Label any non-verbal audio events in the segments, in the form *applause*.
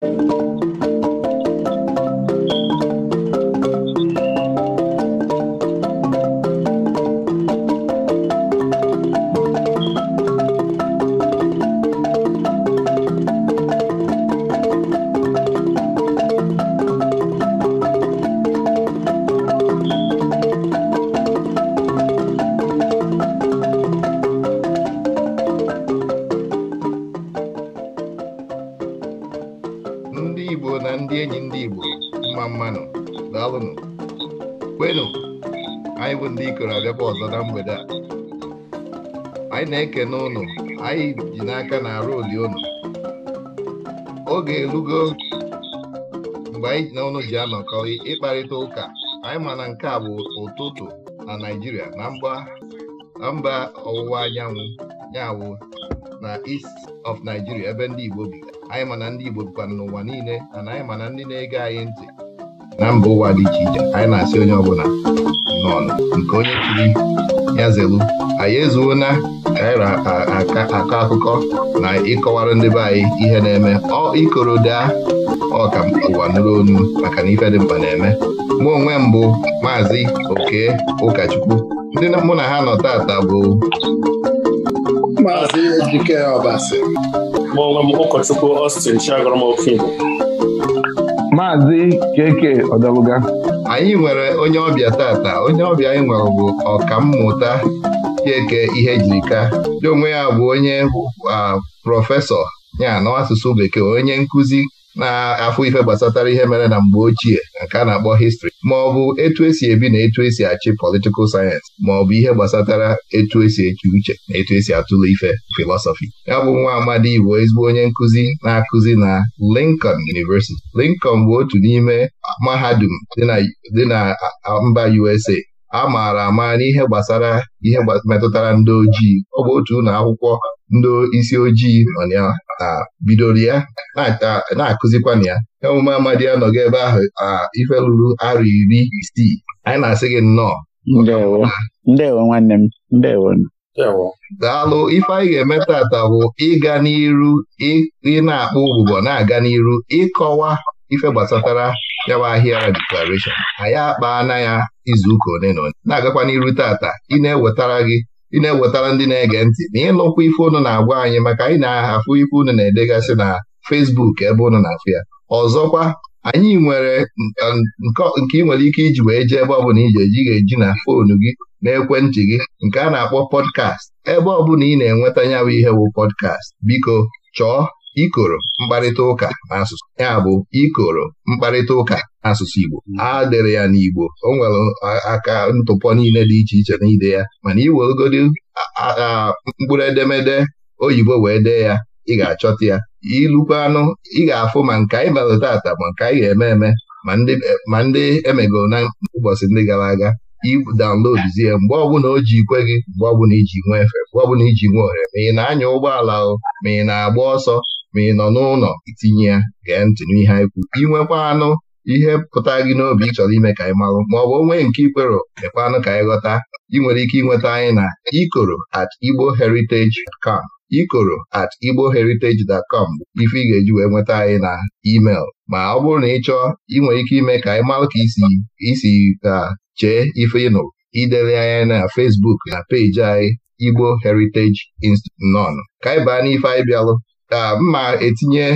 Thank you. ji n'aka na arụ oli oge erugo mgbe anyị na unu ji anọkọ ịkparịta ụka anyị ma na nke a bụ ụtụtụ na Naịjirịa na mba ọwụwa anyanwụ nyawụ na east of Nigeria ebe ndị Igbo bi anyị ma na ndị Igbo bikwana n'ụwa niile na anyị ma na ndị na-ege anyị ntị na mba ụwa dị iche iche anyị na-asị onye ọbụla nọ nke onye chiri ya zelu anyị ezuona Eh, anyị na-akọ akụkọ na ịkọwara ndị be anyị ihe na-eme ọ ikoroda ka ụwa nụrụ onu maka na ife dị mkpa na-eme mụ onwe mbụ maazị oke ụkọchukwu ndị mụ na ha nọ taata bụ maazị ejike ọbasi mụ onwe m ụkọchukwu Austin Chiagọrọ Okigbo maazị keke ọdọlụga anyị nwere onye ọbịa tata onye ọbịa anyị nwere bụ ọkammụta Chieke Ihejirika jirika, onwe ya bụ onye prọfesọ ya na asụsụ bekee onye nkụzi na-afụ ife gbasatara ihe mere na mgbe ochie nke a na-akpọ histri ma ọ bụ etu esi ebi na etu esi achị politikal sayensị ma ọ bụ ihe gbasatara etu esi eche uche na etu esi atụle ife filọsọfi ya bụ nwa amadi Igbo ezigbo onye nkụzi na-akụzi na Lincoln University Lincoln bụ otu n'ime mahadum dị na mba USA a maara ama n'ihe gbasara ihe metụtara ndị ojii ọ bụ otu ụlọ akwụkwọ ndị isi ojii nọ ya na bidoro ya na-akụzikwana ya Emume omume amadi anọghị ebe ahụ ife lụrụ arọ iri isii anyị na-asị gị nnọọ nwanne m daalụ ife anyị ga-eme bụ ịga n'iru ị na-akpọ ụbụbọ na-aga n'iru ịkọwa ife gbasatara ya bụ ahịa declaration anyị na ya izuụka ole na ole na-agakwa n'iru tata ị na-ewetara gị ị na-ewetara ndị na-ege ntị na ịlụkwa ife ụnụ na-agwa anyị maka anyị na afụ ife ụnụ na-edegasị na fesbuk ebe ụnụ na-afụ ya ọzọkwa anyị nwere um, nke ị nwere ike iji wee jee ebe ọbụla iji eji ga-eji na foonu gị na ekwentị gị nke a na-akpọ pọdkast ebe ọbụla ị na-enweta ya bụ ihe bụ pọdkast biko chọọ ikoro mkparịta ụka n'asụsụ ya bụ ikoro mkparịta ụka n'asụsụ Igbo hmm. a dere ya n'Igbo o nwere aka ntụpọ niile dị iche iche n'ide ya mana iwerugodi mkpụrụ edemede oyibo wee dee ya ị ga-achọta ya ilukwa anụ ị ga-afụ ma nke anyị mere tata ma nke anyị ga-eme eme ma ndị emegoro na ụbọchị ndị gara aga idaunloduzie mgbe ọbụla o ji ikwe gị mgbe ọbụla iji nwee efe mgbe ọbụla iji nwe ohere ma ị na-anya ụgbọala ma ị na-agba ọsọ ma ị nọ n'ụlọ itinye ya gee ntị n'ihe anyị kwu inwekwa anụ ihe pụta gị n'obi ị chọrọ ime ka anyị marụ ma ọ bụ onwe nke ikwero mekwa anụ ka anyị ghọta ị nwere ike ịnweta anyị na ikoro at igbo heritage com ikoro at igbo heritage com ife ị ga-eji wee nweta anyị na email ma ọ bụrụ na ị chọọ ị nwere ike ime ka anyị marụ ka isi ka chee ife ịnụ idere anyị na Facebook na peji anyị Igbo Heritage Institute nọn ka anyị baa n'ife anyị bịalụ ka mma etinye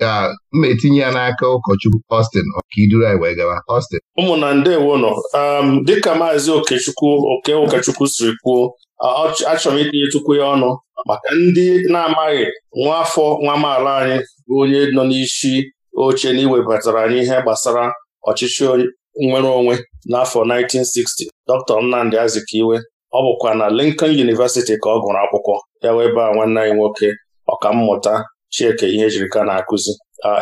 ka mma etinye ya n'aka ụkọchukwu Austin ọkaiduru anyị wee gaba Austin ụmụnna ndewo nọ um, dịka maazị okechukwu oke ụkọchukwu siri kwuo achọrọ itinye itinyechukwu ya ọnụ maka ndị na-amaghị nwa afọ nwa amaala anyị bụ onye nọ n'isi oche na anyị ihe gbasara ọchịchị nwere onwe n'afọ 1960 Dr. Nnamdi Azikiwe ọ bụkwa na Lincoln University ka ọ gụrụ akwụkwọ ya wee baa nwanne anyị nwoke mmụta Chieke ihe ejirika na-akụzi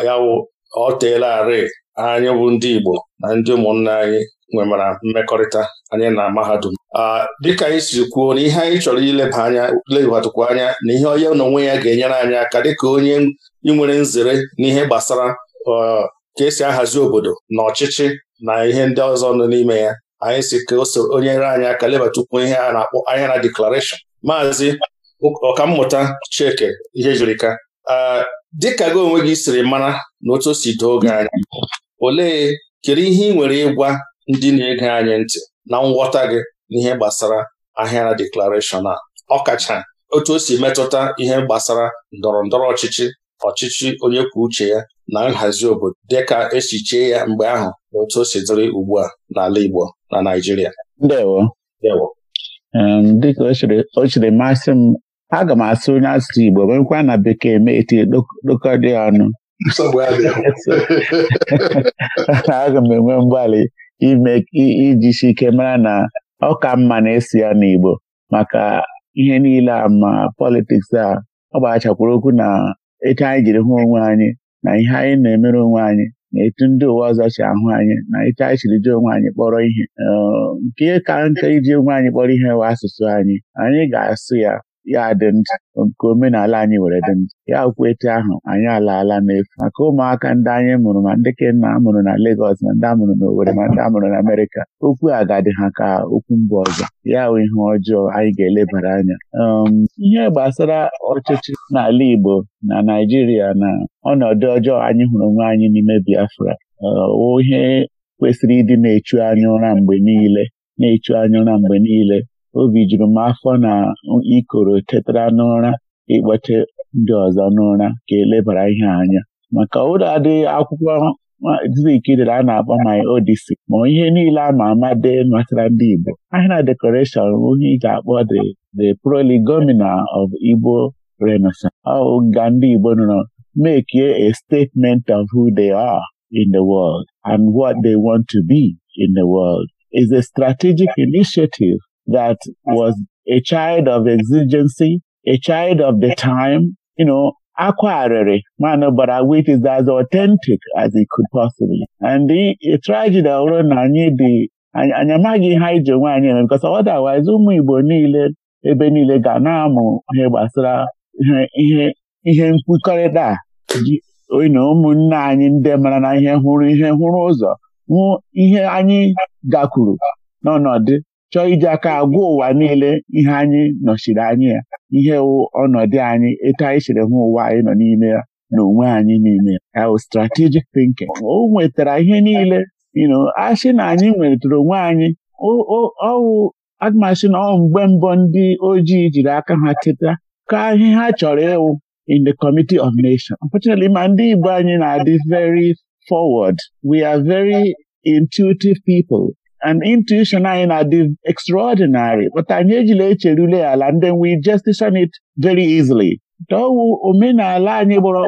ya wụ ọ teela arị anyị bụ ndị Igbo na ndị ụmụnna anyị nwemara mmekọrịta anyị na mahadum dịka anyị siri kwuo na ihe anyị chọrọ ileba anya lebatụkwa anya na ihe onye n'onwe ya ga-enyere anyị aka dịka onye nwere nzere n'ihe gbasara ka esi ahazi obodo na ọchịchị na ihe ndị ọzọ nọ n'ime ya anyị si ka so onye nyere anyị aka lebatụkwu ihe a na-akpọ na deklarashọn maazị ọkammụta ihe jirika, dịka gị onwe gị siri mara na otu o si doo oge anya olee kedu ihe ị nwere ịgwa ndị na-ege anyị ntị na nghọta gị n'ihe gbasara ahịara deklarashọn a ọkacha otu o si metụta ihe gbasara ndọrọ ndọrọ ọchịchị ọchịchị onye kwuo uche ya na nhazi obodo dịka esi ya mgbe ahụ na otu o si dịrị ugbu a n'ala Igbo na Naịjirịa dịka o masị m aga m asụ onye asụsụ Igbo nwekwa na bekee mee etinye dokọ dị ọnụ *laughs* aga m enwe mgbalị ime ijisi ike mara na ọ ka mma na-esi ya n'Igbo maka ihe niile a ma politiks a ọ gbachakwuru okwu na etu anyị jiri hụ onwe anyị na ihe anyị na-emere onwe anyị na etu ndị ụwa ọzọ si ahụ anyị na etu anyị siri ji onwe anyị kpọrọ ihe um, nke ka nke iji onwe anyị kpọrọ ihe wa asụsụ anyị anyị ga-asụ ya ya dị nta nke omenala anyị were dị nta ya okwu etu ahụ anyị alaala n'efu maka ụmụaka ndị anyị mụrụ ma ndị kenna amụrụ na legos ma ndị amụrụ na ma ndị amụrụ na Amerịka okwu agadi ha ka okwu mba ọzọ ya bụ ihe ọjọọ anyị ga-elebara anya um, ihe gbasara ọchịchị n'ala Igbo na Naijiria na ọnọdụ ọjọọ anyị hụrụ onwe anyị n'ime Biafra uh, ihe kwesịrị ịdị na-echu anya ụra mgbe niile na-echu anya ụra mgbe niile obi juru m afọ na ikoro tetara n'ụra ịkpọte ndị ọzọ n'ụra ka elebara ihe anya maka ụlọ adịghị akwụkwọ Zik a na-akpọ my Odyssey ma ihe niile a ma ama dị matara ndị Igbo ahịa na decoration onye ị akpọ the the prolegomena of Igbo Renaissance ọ ga ndị Igbo nọ make a statement of who they are in the world and what they want to be in the world is a strategic initiative that was a child of exigency, a child of the time, you know, acquirere, man, but our wit is as authentic as it could possibly. And the tragedy ọrụ na anyị dị anyị amaghị ihe anyị ji onwe anyị eme because otherwise ụmụ Igbo niile ebe niile ga na-amụ ihe gbasara ihe ihe nkwukọrịta na ụmụnne anyị ndị mara na ihe hụrụ ihe hụrụ ụzọ hụ ihe anyị gakwuru n'ọnọdụ chọọ iji aka agwa ụwa niile ihe anyị nọchiri anyị ya ihe wụ ọnọdụ anyị etu anyị siri hụ ụwa anyị nọ n'ime ya na onwe anyị n'ime ya strategic thinking o nwetara ihe niile asị na anyị nwetara onwe anyị ọwụ admasị na ọ mgbe mbọ ndị ojii jiri aka ha teta ka ihe ha chọrọ ịwụ in the committee of nation unfortunately ma ndị Igbo anyị na-adị very forward we are very intuitive people and intuition anyị na-adị extraordinary but anyị ejila echerule ala and then we justify it very easily dọwụ omenala anyị gbọrọ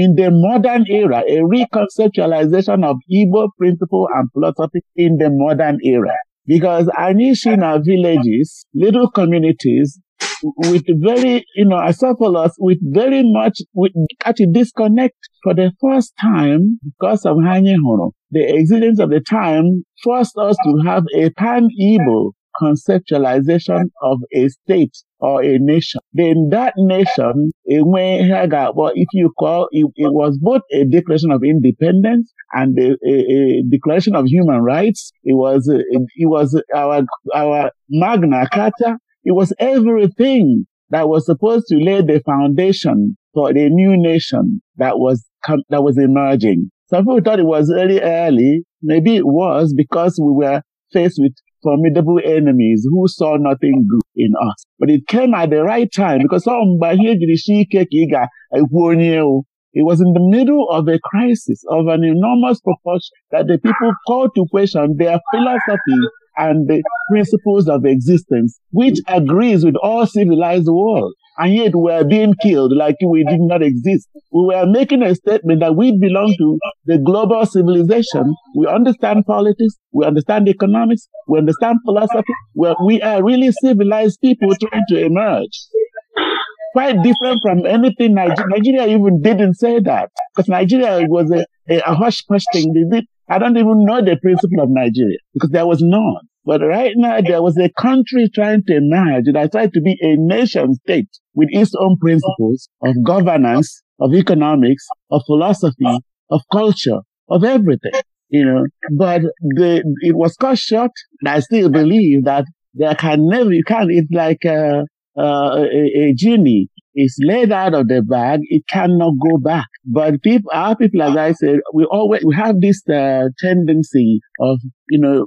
in the modern era a reconceptualization of Igbo principle and philosophy in the modern era because anyị si na villages little communities with very, you know, acephalus with very much, with actually disconnect for the first time because of hụrụ The existence of the time forced us to have a pan-Igbo conceptualization of a state or a nation. Then that nation, if you call, it, it was both a declaration of independence and a, declaration of human rights. It was, it, was our, our Magna Carta It was everything that was supposed to lay the foundation for the new nation that was, that was emerging. Some people thought it was early, early. Maybe it was because we were faced with formidable enemies who saw nothing good in us. But it came at the right time because it was in the middle of a crisis of an enormous proportion that the people called to question their philosophy and the principles of existence, which agrees with all civilized world. And yet we are being killed like we did not exist. We were making a statement that we belong to the global civilization. We understand politics. We understand economics. We understand philosophy. well we are really civilized people trying to emerge quite different from anything Nigeria, Nigeria even didn't say that because Nigeria was a, a, a hush hush thing. They did I don't even know the principle of Nigeria because there was none. But right now, there was a country trying to emerge that tried to be a nation state with its own principles of governance, of economics, of philosophy, of culture, of everything, you know. But the, it was cut short. And I still believe that there can never, you can't, it's like a, uh, a, uh, a, a genie is laid out of the bag, it cannot go back. But people, our people, as I said, we always we have this uh, tendency of you know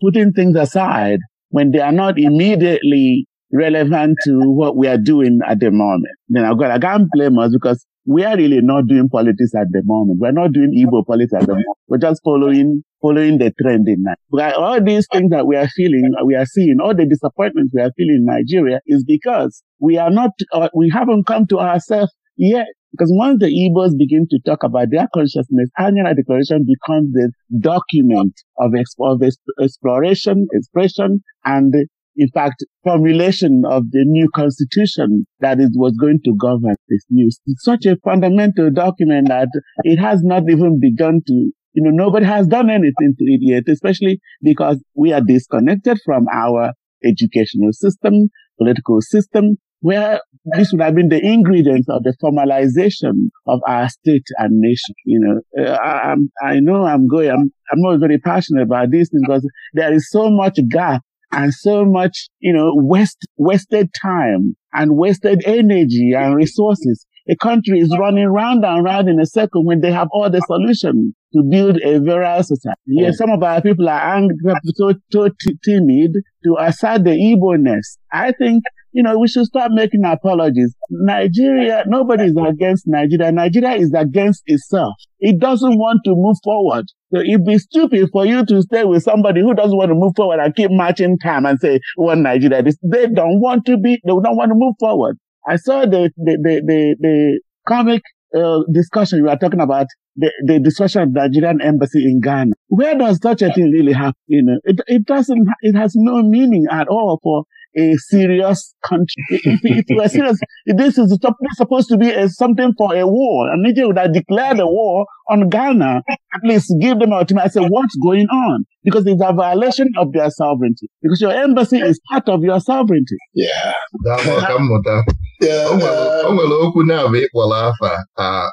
putting things aside when they are not immediately relevant to what we are doing at the moment. Then I've got I can't blame us because we are really not doing politics at the moment. We're not doing Igbo politics at the moment. We're just following following the trend in Nigeria. All these things that we are feeling, we are seeing, all the disappointments we are feeling in Nigeria is because we are not, uh, we haven't come to ourselves yet. Because once the Igbos begin to talk about their consciousness, annual declaration becomes the document of, exp- of exp- exploration, expression, and in fact, formulation of the new constitution that it was going to govern this new It's such a fundamental document that it has not even begun to, you know, nobody has done anything to it yet, especially because we are disconnected from our educational system, political system, where this would have been the ingredients of the formalization of our state and nation. You know, uh, I, I, know I'm going, I'm, not very passionate about this because there is so much gap and so much, you know, wasted time and wasted energy and resources. A country is running round and round in a circle when they have all the solutions to build a virile society. Yes, some of our people are angry, so, so timid to assert the Igbo-ness. I think you know, we should start making apologies. Nigeria, nobody is against Nigeria. Nigeria is against itself. It doesn't want to move forward. So it be stupid for you to stay with somebody who doesn't want to move forward and keep marching time and say, well, Nigeria, this, they don't want to be, they don't want to move forward. I saw the, the, the, the, the comic uh, discussion you were talking about the, the of the Nigerian embassy in Ghana. Where does such a thing really happen? You know, it, it doesn't, it has no meaning at all for a serious country. if, *laughs* if it were serious, this is supposed to be a, something for a war. And Niger would have declared a war on Ghana, at least give them an to me. I said, what's going on? Because it's a violation of their sovereignty. Because your embassy is part of your sovereignty. Yeah. o nwere okwu na-abụ ịkpọrọ afa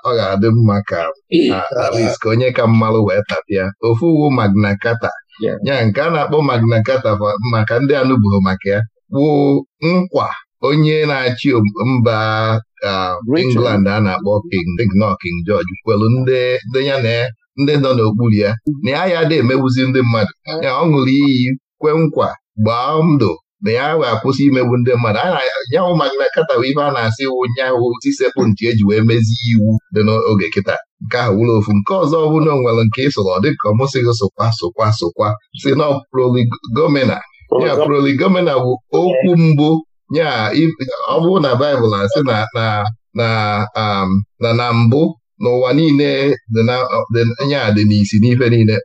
ọ ga-adị mma ka at ka onye ka mmalụ wee tapịa ofu uwu Magna Carta ya nke a na-akpọ Magna Carta maka ndị anụbụghị maka ya bụ nkwa onye na-achị mba England a na-akpọ King King George kwelu ndị ya na ndị nọ n'okpuru ya na ya ya dị emegbuzi ndị mmadụ ya ọ ṅụrụ iyi kwe nkwa gbaa ndụ na ya wee akwụsị imegbu ndị mmadụ yanwụ Magna na bụ ife a na-asị wụ nyaahụ tisekpụ e eji wee mezie iwu dị n'oge kịta nke ahụ wụrụ ofu nke ọzọ ọ bụrụ na o nwere nke ịsụrụ ọ dị ka ọ mụsịghị si na ọproli ya proli bụ okwu mbụ ya ọ bụrụ na baịbụl na-asị um, na na mbụ n'ụwa niile ya dị n'isi n'ife niile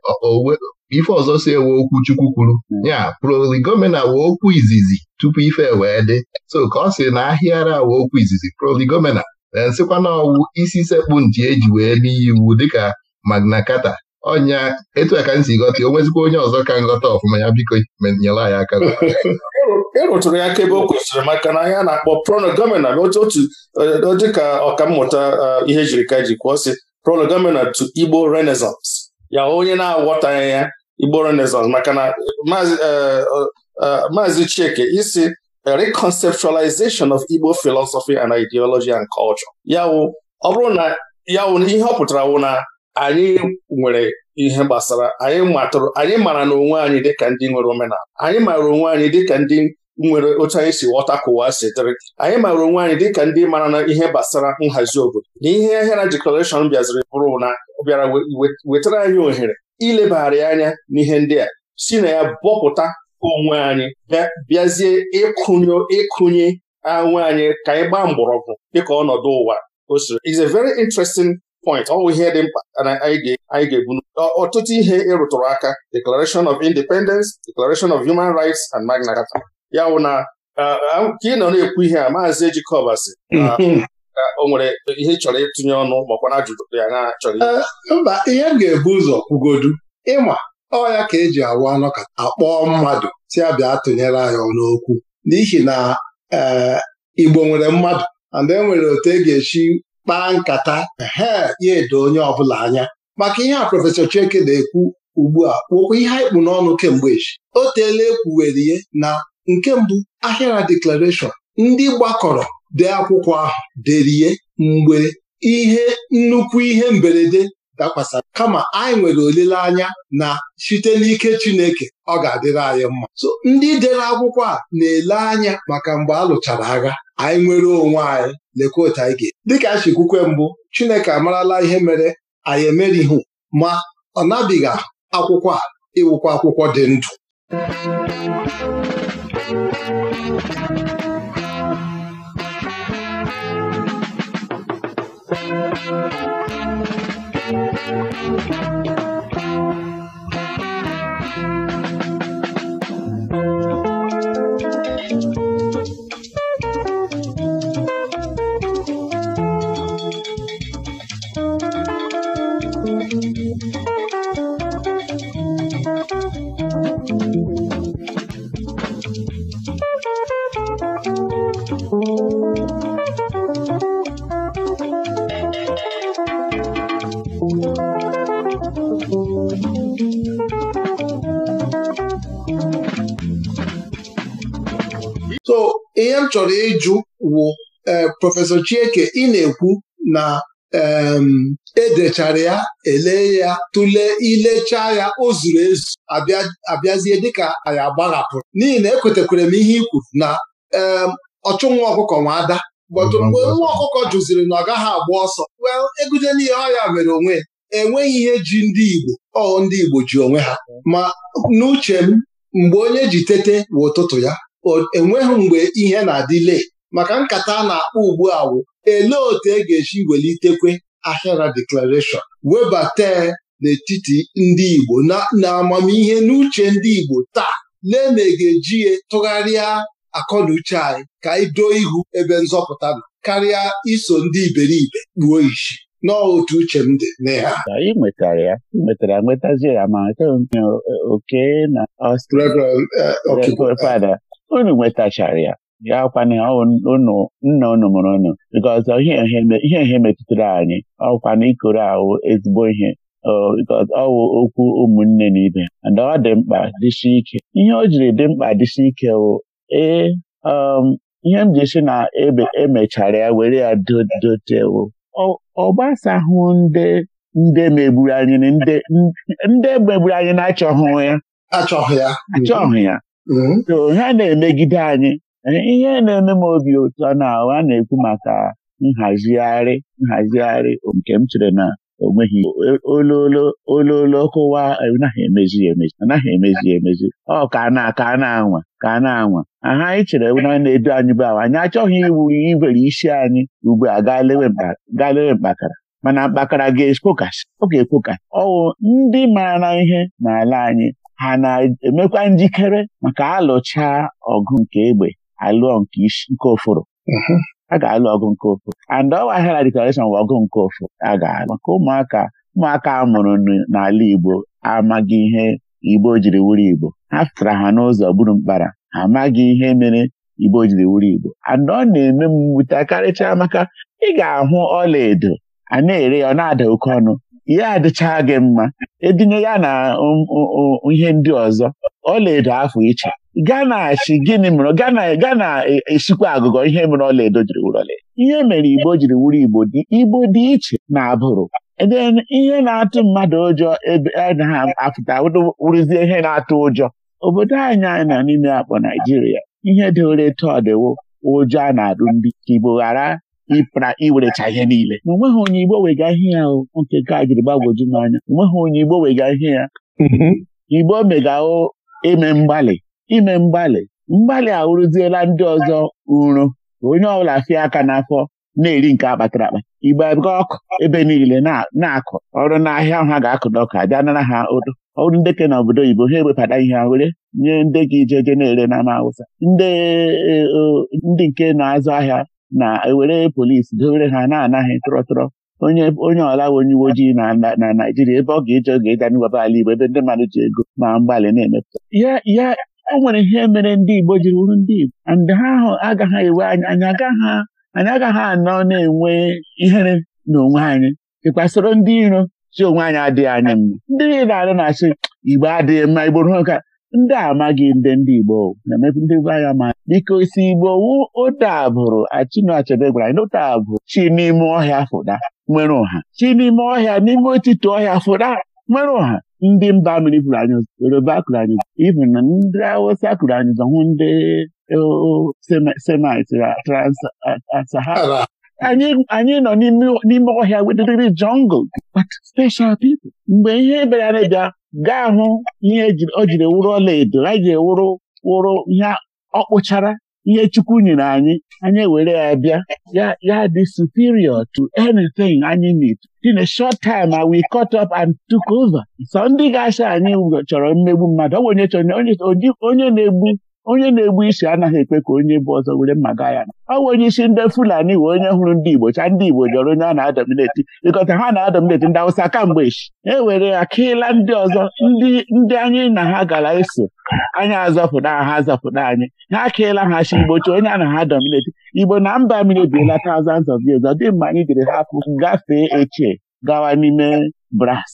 ife ọzọ si ewe okwu chukwu kwuru ya proligomena wee okwu izizi tupu ife e wee dị so ka ọ sị na ahịara wee okwu izizi proligomena na nsịkwa na ọwụ isi sekpu eji wee n'iyi iwu dịka Magna Carta ọnya etu a ka m si o nwezikwa onye ọzọ ka nghọta ọfụma ya biko nyere ya aka ịrụtụrụ *laughs* e ya aka o kwesịrị maka na ya na-akpọ prolegomena otu dịka eh, ọkammụta eh, ihe jiri ka e ji kwuo si prolegomena to Igbo Renaissance ya onye na-aghọtaghị ya Igbo Renaissance maka na eh, maazị Chieke isi reconceptualization of Igbo philosophy and ideology and culture ya ọ bụrụ na ya ihe ọ pụtara wụ na anyị nwere ihe gbasara anyị matụrụ anyị mara na onwe anyị dịka ndị nwere omenala anyị mara onwe anyị dịka ndị nwere otu anyị si ghọta ka ụwa si dịrị anyị mara onwe anyị dịka ndị mara na ihe gbasara nhazi obodo na ihe ahịara deklarashọn bịaziri bụrụ na bịara wetara anyị ohere ilebagharị anya n'ihe ndị a si na ya bọpụta onwe anyị bịazie ịkụnye ịkụnye anwe anyị ka anyị gbaa mgbọrọgwụ dịka ọnọdụ ụwa o siri is a very interesting point ọ bụ ihe dị mkpa na anyị ga-ebu ọtụtụ ihe ịrụtụrụ e aka Declaration of Independence Declaration of Human Rights and Magna Carta ya wụ na ka ị nọ na-ekwu ihe a maazị Ejikọba sị ka o nwere ihe ị chọrọ ịtụnye ọnụ makwa na ajụjụ ya na chọrọ mba ihe m ga-ebu ụzọ kwugodu ịma ọ ya ka eji awụ anọ ka akpọọ mmadụ si abịa tụnyere anyị n'okwu n'ihi na e, Igbo nwere mmadụ and e nwere otu e ga echi kpaa nkata he ya edo onye ọbụla anya maka ihe a prọfesọ Chieke na-ekwu ugbu a kwokwa ihe anyị kpụ n'ọnụ kemgbe echi o teela ekwuwere ihe na nke mbụ ahịara deklarashọn ndị gbakọrọ dee akwụkwọ ahụ derie mgbe ihe nnukwu ihe mberede dakwasara kama anyị nwere olileanya na site n'ike Chineke ọ ga-adịrị anyị mma so ndị dere akwụkwọ a na-ele anya maka mgbe a lụchara agha anyị nwere onwe anyị lekwa otu dịka a chikwukwe mbụ Chineke amarala ihe mere anyị ihu ma ọ nabiga akwụkwọ a ịwụkwa akwụkwọ dị ndụ so ihe m chọrọ ịjụ wụ eh, Prọfesọ Chieke ị na-ekwu na Um, edechara ya elee ya tụlee ilechaa ya o zuru ezu abịazie dịka anyị agbaghapụrụ n'ihi na ekwetekwere m ihe i kwuru na um, ọchụ nwa ọkụkọ nwa ada bọtụ mgbe nwa ọkụkọ jụziri na ọ gaghị agba ọsọ wel egute n'ihe ọya mere onwe ya enweghị ihe ji ndị Igbo ọ ndị Igbo ji onwe ha ma n'uche m mgbe onye ji tete bụ ụtụtụ ya enweghị mgbe ihe na adị lee, maka nkata a na-akpọ ugbu a wụ elee otu e ga-esi welitekwe ahịara deklarashọn webata n'etiti ndị Igbo na amamihe n'uche ndị Igbo taa lee na ga-eji ya tụgharịa akọnuche anyị ka anyị doo ihu ebe nzọpụta nọ karịa iso ndị iberibe kpuo isi n'otu uche m dị n'ihe a. nwetara ya nwetara nwetazie ya ma oke na Ọstrịa eh, fada unu nwetachara ya ya kwana ụnụ nna ụnụ mụrụ ụnụ nke ihe ihe metụtara anyị ọkwana ikoro ahụ ezigbo ihe ọwụ okwu ụmụnne na ibe na ọ dị mkpa dịsi ike ihe o jiri dị mkpa dịsi ike wụ ee um, ihe m ji si na emechara e ya were ya dotewo ọ gbasahụ ndị ndị megburu anyị ndị megburu anyị na achọhụ ya achọghị ya mm-hmm. so ha na-emegide anyị ihe na-eme m obi ụtọ na a na-ekwu maka nhazigharị nhazigharị nke m chere na onweghị ololo ololo kụwa anaghị emezi emezi anaghị emezi emezi ọ ka na ka na-anwa ka na-anwa aha anyị chere na na-edu anyị bụ awa anyị achọghị iwu ibere isi anyị ugbu a gaa lewe mkpakara mana mkpakara ga-ekpokasị ọ ga-ekpokasị ọwụ ndị mara ihe n'ala anyị ha na-emekwa njikere maka alụcha ọgụ nke egbe alụọ nke oforo mm-hmm. a ga-alụ ọgụ nke ụfụrụ. and ọ hera declaration bụ ọgụ nke ofo a ga-alụ maka ụmụaka ụmụaka a mụrụ n'ala Igbo amaghị ihe Igbo jiri wuru Igbo ha fetara ha n'ụzọ gburu mkpara ha amaghị ihe mere Igbo jiri wuru Igbo and ọ na-eme m mwute karịchaa maka ị ga-ahụ ọla edo a na-ere ya ọ na-ada oke ọnụ ihe adịcha gị mma edinye ya na um, um, um, ihe ndị ọzọ ọla edo afọ iche Ghana achị, gịnị mere Ghana Ghana e, e, esikwa agụgọ ihe mere ọlaedo jiri wuru ihe mere Igbo jiri wuru Igbo dị Igbo dị iche na abụrụ ihe na-atụ mmadụ ụjọ ebe anaghị e, apụta wụrụzie ihe na-atụ ụjọ obodo anyị anyị na n'ime akpọ Naijiria ihe dị ole tọdịwo ụjọ a na-adụ ndị Igbo ghara ịpra iwerecha ihe niile na onweghị onye Igbo wega ihe ya nke ka jiri gbagwoju n'anya onweghị onye Igbo wega ihe ya mm-hmm. Igbo megao eme mgbalị ime mgbalị mgbalị a ndị ọzọ uru onye ọbụla fie aka n'afọ na-eri nke akpatara akpa igbe ọkụ ebe niile na-akụ ọrụ n'ahịa ahụ ha ga-akụ n'ọkụ abịa nara ha odo ọrụ ndị na obodo oyibo ha ewebata ihe ha were nye ndị gị ijeje na-ere n'ama awụsa e, ndị nke na-azụ ahịa na-ewere polisi dowere ha na-anaghị tụrọtụrọ onye onye ọla onye uwe ojii na na Naijiria ebe ọ ga-eje oge ịga n'iwebe ala Igbo ebe ndị mmadụ ji ego ma mgbalị na-emepụta ya e nwere ihe mere ndị Igbo jiri wuru ndị Igbo ndị ha ahụ agaghị ewe anyị anyị agaghị anyị agaghị anọ na-enwe ihere n'onwe anyị ịkpasoro ndị iro si onwe anyị adịghị anya mma ndị niile arị na-asị Igbo adịghị mma Igbo ruo nka ndị amaghị ndị ndị Igbo na ndị be anyị ma biko si Igbo wu ụtabụrụ Chinua Achebe gwara anyị ụtabụrụ chi n'ime ọhịa fụda nwere ụha chi n'ime ọhịa n'ime otiti ọhịa fụda nwere ụha ndị mba mmiri kụrụ anyị ụzọ yoruba kụrụ anyị ụzọ even na ndị awụsa kụrụ anyị ụzọ hụ ndị semit transahara anyị nọ n'ime ọhịa wedịrịrị jungle but special people mgbe ihe bịara na-ebịa gaa hụ ihe e o jiri wụrụ ọla edo anyị ji ewụrụ wụrụ ihe ọ kpụchara ihe Chukwu nyere anyị anyị were ya bịa ya dị superior to anything anyị need in a short time we cut up and took over so ndị ga-acha anyị chọrọ mmegbu mmadụ ọ bụ onye chọrọ onye na-egbu onye na-egbu isi anaghị ekpe ka onye bụ ọzọ were mma gaa ya na ọ onye isi ndị Fulani wee onye hụrụ ndị Igbo cha ndị Igbo jọrọ onye a na-adọmineti ịkọta ha na-adọmineti ndị Awụsa kamgbe echi e were ya kịla ndị ọzọ ndị anyị na ha gara eso anyị azọpụta ha azọpụta anyị ha akịla ha chi Igbo onye a na ha Igbo na mba mmiri ebiela thousands of years ọ dị mma anyị jiri hapụ gafee echie gawa n'ime bras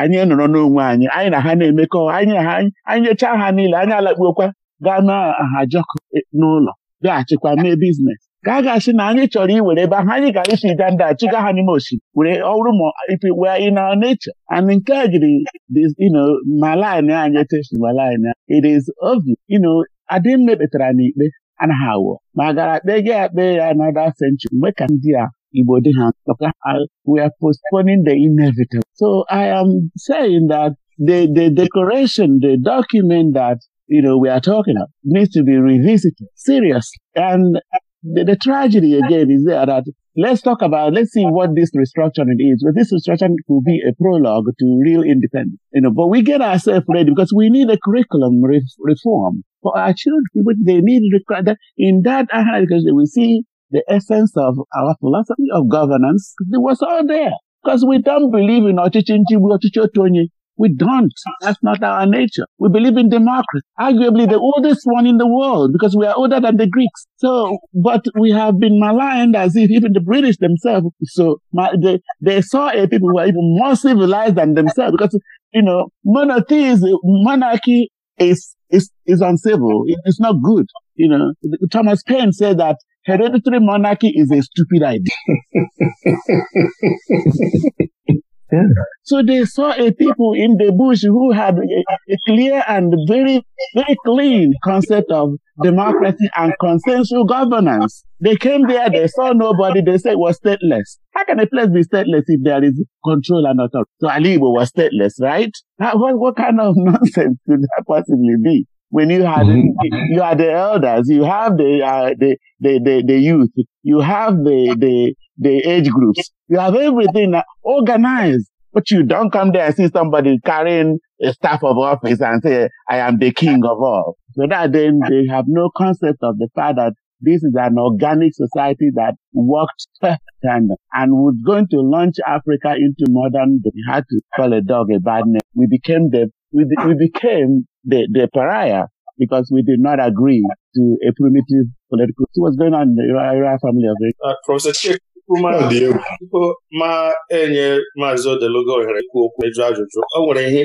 anyị nọrọ n'onwe anyị anyị na ha na-emekọ anyị na ha anyị nyechaa ha niile anyị alakpuokwa gaa n'aha ahajọkụ e, n'ụlọ bịaghachikwa mee biznes ka a ga-asị na anyị chọrọ iwere ebe ahụ anyị gara isi ga nda chụga ha n'ime osimiri were ọrụ ma ipi wee in our nature and nke a jiri ma lin anyị tesma lin it is obi you adịm adị mmekpetara n'ikpe anaghị awụ ma gara kpee gị akpe ya another century mgbe ka ndị a Igbo dị ha we are postponing the inevitable so I am saying that the the decoration the document that you know, we are talking about needs to be revisited seriously. And the, the, tragedy again is there that let's talk about, let's see what this restructuring is. But this restructuring could be a prologue to real independence, you know, but we get ourselves ready because we need a curriculum re- reform for our children. They need that in that uh, because we see the essence of our philosophy of governance. It was all there because we don't believe in Ochichi Ochichi Otonye. We don't. That's not our nature. We believe in democracy, arguably the oldest one in the world because we are older than the Greeks. So, but we have been maligned as if even the British themselves. So my, they, they saw a people who are even more civilized than themselves because, you know, monotheism, monarchy is, is, is uncivil. It's not good. You know, Thomas Paine said that hereditary monarchy is a stupid idea. *laughs* So they saw a people in the bush who had a, a, clear and very, very clean concept of democracy and consensual governance. They came there, they saw nobody, they said it was stateless. How can a place be stateless if there is control and authority? So Aligbo was stateless, right? What, what kind of *laughs* nonsense could that possibly be? When you had mm-hmm. you are the elders, you have the, uh, the, the the the youth, you have the the the age groups. You have everything organized, but you don't come there and see somebody carrying a staff of office and say, I am the king of all. So that then they have no concept of the fact that this is an organic society that worked and, and was going to launch Africa into modern, we had to call a dog a bad name. We became the, we, we became the, the pariah because we did not agree to a primitive political. What was going on in the royal family of it? Uh, Professor Chip, tupu ma enye maazị Odeluga ohere ikwu okwu ịjụ ajụjụ o nwere ihe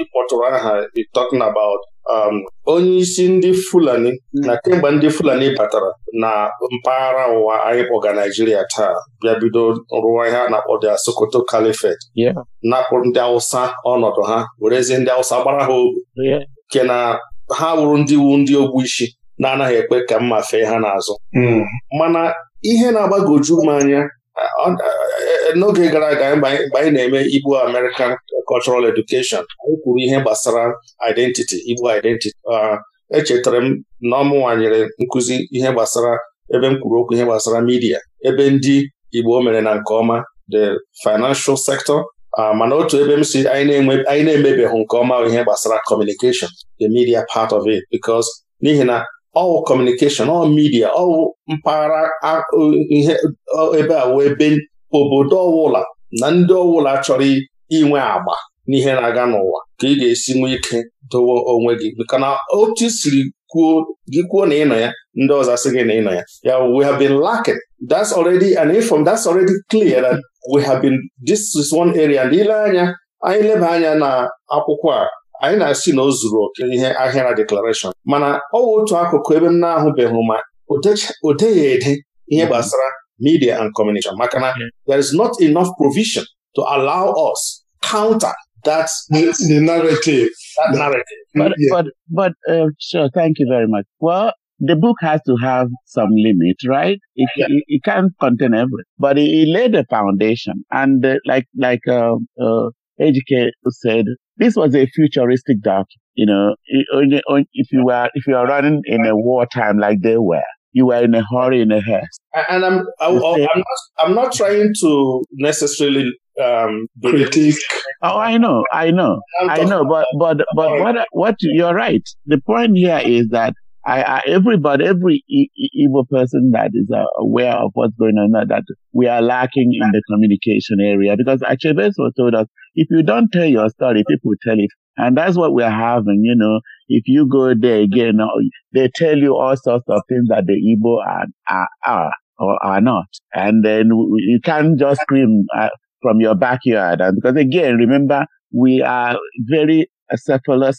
ịkpọtụrụ aha dị talking about um, onye isi ndị Fulani na kemgbe ndị Fulani batara na mpaghara ọwụwa anyị kpọga Naijiria taa bịa bido rụwa ihe a na-akpọ the Sokoto Caliphate napụ ndị awụsa ọnọdụ ha werezie ndị awụsa gbara ha ogu nke na ha wụrụ ndị wu ndị ogbu isi na-anaghị ekpe ka mma fee ha n'azụ mm. mana ihe na-agbagoju m anya e, n'oge gara aga mgbe anyị na-eme Igbo American Cultural Education anyị kwuru ihe gbasara identity Igbo identity echetara m na nwanyere nkuzi nkụzi ihe gbasara ebe m kwuru okwu ihe gbasara midia ebe ndị Igbo mere na nke ọma the financial sector mana otu ebe m si anyị na-emebeghị nke ọma ihe gbasara communication the media part of it because n'ihi na all communication all media all mpaghara ihe ebe a wee ebe obodo ọwụla na ndị ọwụla chọrọ inwe agba n'ihe na-aga n'ụwa ka ị ga-esi nwee ike dowe onwe gị maka na otu siri kwuo gị kwuo na ị nọ ya ndị ọzọ asị gị na ị nọ ya ya we have been lacking that's already an inform that's already clear that we have been this is one area ndị ile anya anyị leba anya na akwụkwọ a anyị na-asị na o zuru oke ihe ahịara deklarashọn mana ọ wụ otu akụkụ ebe m na-ahụbeghị ma o ede ihe mhm. gbasara media and communication maka na mhm. there is not enough provision to allow us counter that the narrative. That narrative. But, yeah. but, but uh, sure, thank you very much. Well, the book has to have some limit, right? It, yeah. it, it, can't contain everything, but it, it laid a foundation. And uh, like like uh, uh, HK said, this was a futuristic doc. You know, if you were if you are running in a wartime like they were, you were in a hurry in a haste. And I'm I, not I'm not trying to necessarily um, critique. Oh, I know, I know, I know. But but but what what you're right. The point here is that I, I, everybody, every e, e, Igbo person that is uh, aware of what's going on, that we are lacking in the communication area because Achebeso told us, if you don't tell your story, people tell it. And that's what we're having, you know. If you go there again, they tell you all sorts of things that the Igbo are, are, are or are not. And then you can't just scream uh, from your backyard. And because again, remember, we are very a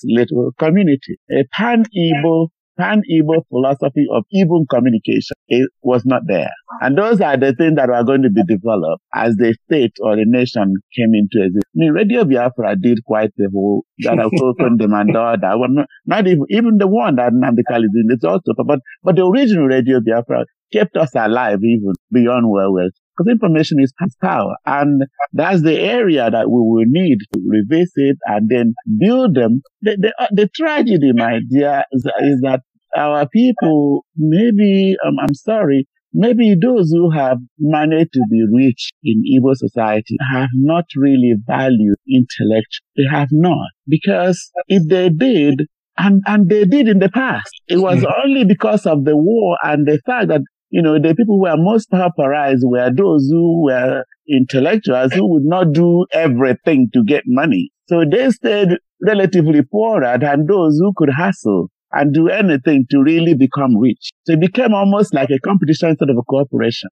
little community. A pan Igbo Pan Igbo philosophy of even communication it was not there. And those are the things that were going to be developed as the state or the nation came into existence. I mean, Radio Biafra did quite a whole that of Kokon Demandor, that one, not even, even the one that Nandikal is in, it's also, but, but the original Radio Biafra kept us alive even beyond where we're because information is power. And that's the area that we will need to revisit and then build them. The, the, uh, the tragedy, my dear, is, is that our people, maybe, um, I'm sorry, maybe those who have managed to be rich in Igbo society have not really valued intellect. They have not. Because if they did, and, and they did in the past, it was hmm. only because of the war and the fact that you know, the people who were most pauperized were those who were intellectuals who would not do everything to get money. So they stayed relatively poorer than those who could hustle. and do anything to really become rich. So it became almost like a competition instead of a cooperation.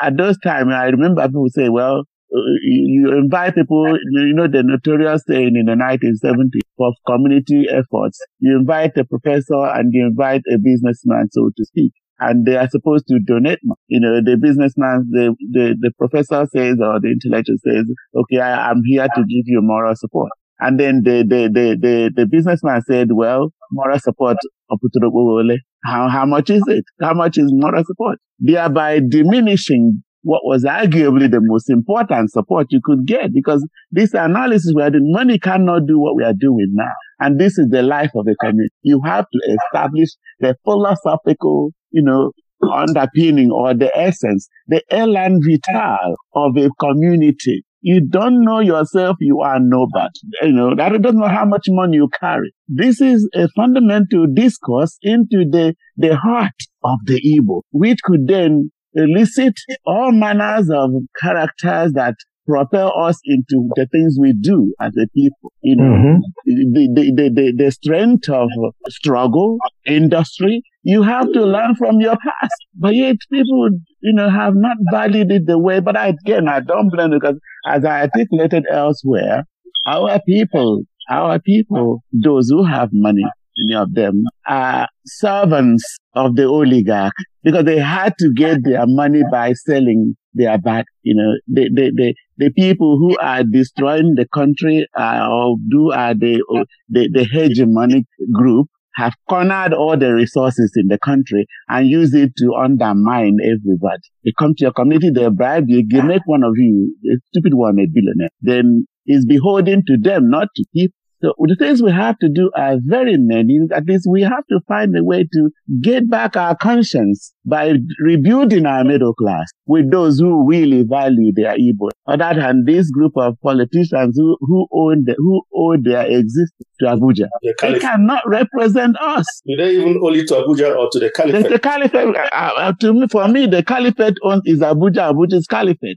At those times, I remember people say, well, uh, you invite people, you know, the notorious saying in the 1970s of community efforts. You invite a professor and you invite a businessman, so to speak. And they are supposed to donate. You know, the businessman, the, the, the professor says or the intellectual says, okay, I, am here to give you moral support. And then the, the, the, the, the businessman said, well, moral support Oputuro how, how much is it? How much is moral support? Thereby diminishing what was arguably the most important support you could get because this analysis we are doing, money cannot do what we are doing now. And this is the life of the community. You have to establish the philosophical, you know, underpinning or the essence, the elan vital of a community you don't know yourself, you are nobody. You know, that doesn't know how much money you carry. This is a fundamental discourse into the, the heart of the Igbo, which could then elicit all manners of characters that propel us into the things we do as a people. Mm-hmm. the, the, the, the, strength of struggle, industry, You have to learn from your past. But yet people, you know, have not valued it the way. But again, I don't blame because as I articulated elsewhere, our people, our people, those who have money, many of them are servants of the oligarch because they had to get their money by selling their back. You know, the, the, the, the people who are destroying the country are, uh, or do are the, the, the hegemonic group have cornered all the resources in the country and use it to undermine everybody. They come to your community, they bribe you, they make one of you, a stupid one, a billionaire. Then it's beholden to them not to keep So the things we have to do are very many. At least we have to find a way to get back our conscience by rebuilding our middle class with those who really value their Igbo. On that hand, this group of politicians who, who own the, who owe their existence to Abuja, the they cannot represent us. Do they even owe it to Abuja or to the caliphate? The, the caliphate, uh, uh, uh, to me, for me, the caliphate owns is Abuja, Abuja's caliphate.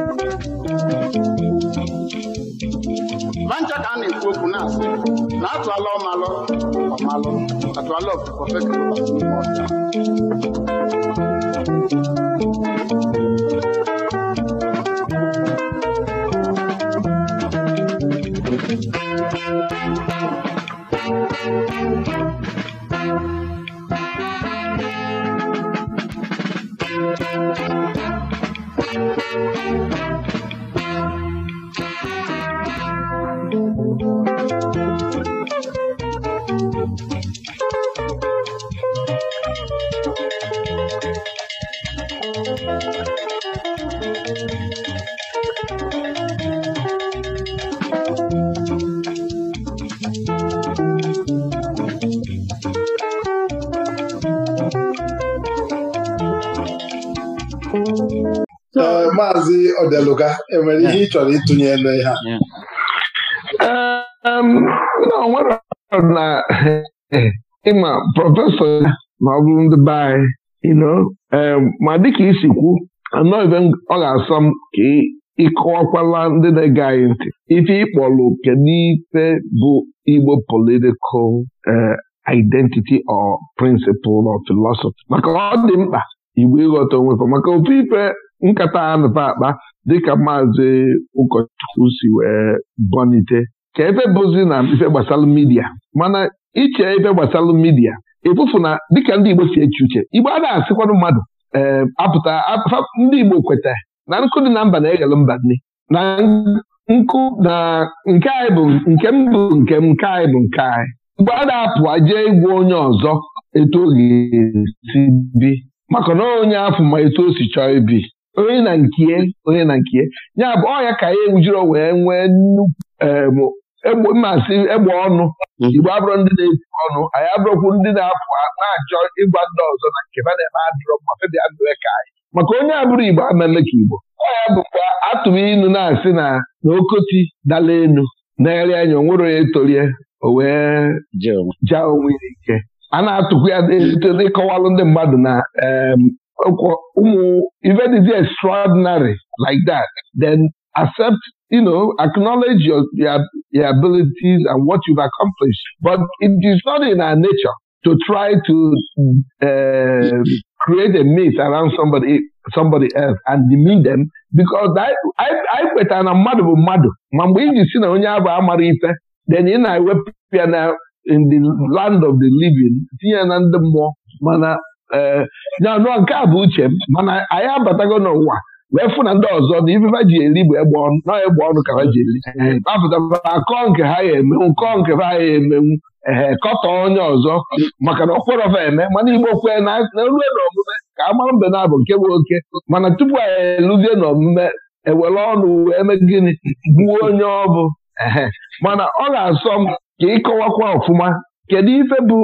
*laughs* na atụ atụala ọmalụ ọmalụ atụala ọkụkọ fekere n'ime ọcha Thank you. eluga enwere ihe ị chọrọ ịtụnye ele ha nwere na ịma prọfesọ ma ọ bụrụ ndị be anyị ma dịka isi kwu anọghịbe ọ ga-asọ m ka ịkọwakwala ndị na-ege anyị ntị ife ịkpọlụ kedu ife bụ Igbo political identity or principle or philosophy maka ọ dị mkpa Igbo ịghọta onwefe maka ofe ife nkata anụfe akpa dịka maazị ụkọchukwu si wee bọnite ka ebe bụzi na ife gbasara midia mana iche ebe gbasara midia ịfụfụ na dịka ndị Igbo si eche uche Igbo a na-asịkwanụ mmadụ ee eh, apụta ndị Igbo kweta na nkụ dị na mba na-eghele mba nne na nkụ na nke anyị bụ nke m bụ nke m nke anyị bụ nke anyị Igbo a na-apụ aje ịgwa onye ọzọ etu o ga-esi bi maka na onye afụ ma etu o si chọọ ibi onye na nkie onye na nkie ya bụ ọya ka ya ewujiro wee nwee nnukwu mmasị egbe ọnụ mhm. igbo abụrụ ndị na-ebu ọnụ anyị abụrụkwu ndị na-apụ na-achọ ịgwa ndị ọzọ na nke ma na-eme adịrọ ma febia mewe ka anyị maka onye abụrụ igbo ameme ka igbo ọya bụkwa atụrụ ịnụ na-asị na na okoti dala elu na-eri anya onwere onye tolie o wee jaa onwe ya ike a na-atụkwu ya dịkọwalụ ndị mmadụ na ụmụ ife dịzi extraordinary like that then accept you know, acknowledge your, your, your abilities and what you've accomplished. But it is not in our nature to try to uh, create a myth around somebody somebody else and demean them because I kwetara na mmadụ bụ mmadụ ma mgbe iji si na onye abụ amara ife then ị na-ewepụ ya na in the land of the living tinye na ndị mmụọ mana nyanụọ eh, nke a bụ uche m mana anyị abatago n'ụwa wee fụ na ndị ọzọ na ifefe ji eri bụ egbe ọnụ na egbe ọnụ ka ha ji eri apụtara akọọ nke ha ya emenwu kọọ nke ha ya emenwu ee kọtọ onye ọzọ maka na okwerọfa eme mana igbo kwee na erue n'omume ka a mbe na-abụ nke bụ oke mana tupu anyị eluzie n'omume ewere ọnụ wee mee gịnị gbuo onye ọ bụ mana ọ ga-asọ m ka ịkọwakwa ọfụma kedu ife bụ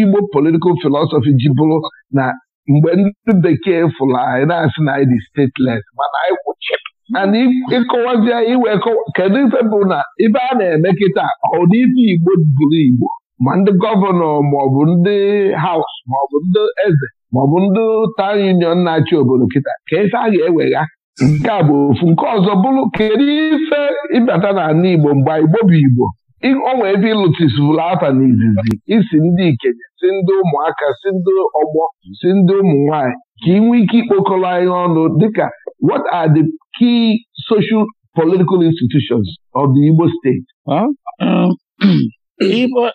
igbo politikal filosofi ji bụrụ na mgbe ndị bekee fụrụ anyị na-asị na anyị dị stateless mana anyị kwụchip mana ịkọwazi anyị iwe kedu ife bụ na ife a na-eme kịta ọ dị ife igbo bụrụ igbo ma ndị gọvanọ maọbụ ndị haus maọbụ ndị eze maọbụ ndị taụn union na-achị obodo kịta ka ife a ga-ewegha nke a bụ ofu nke ọzọ bụrụ kedu ife ịbata n'ala igbo mgbe igbo bụ igbo ọnwa ebe ịlụtisibụla afa na isi ndị ikenye si ndị ụmụaka si ndị ọgbọ si ndị ụmụ nwanyị ka ị nwee ike ikpokọrọ anyị ọnụ dịka what are the key social political institutions of the Igbo state? *clears throat* Igbo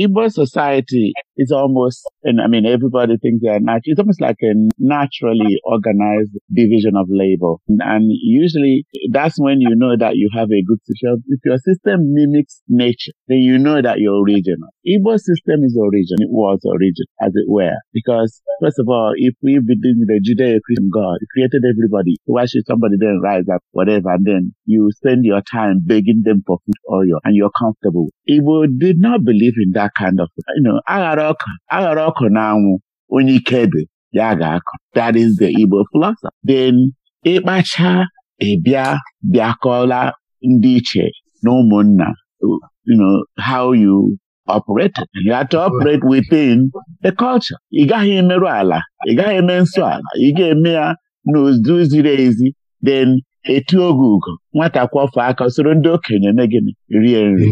Igbo society is almost, and I mean, everybody thinks they are it's almost like a naturally organized division of labor. And usually that's when you know that you have a good system. If your system mimics nature, then you know that you're original. Igbo system is original. It was original, as it were. Because first of all, if we begin with the Judeo-Christian God, he created everybody. Why should somebody then rise up, whatever, and then you spend your time begging them for food or your, and you're comfortable. Igbo did not believe in that kind of, you know, Agaro ọka aghara ọkụ na anwụ onye ike dị ya ga-akọ that is the Igbo philosophy then ịkpacha ịbịa bịakọla ndị iche na ụmụnna you know how you operate you have to operate within the culture ị gaghị emerụ ala ị gaghị eme nsọ ala ị ga-eme ya n'ozu ziri ezi then etu oge ugo nwata kwọfọ aka soro ndị okenye megịnị rie nri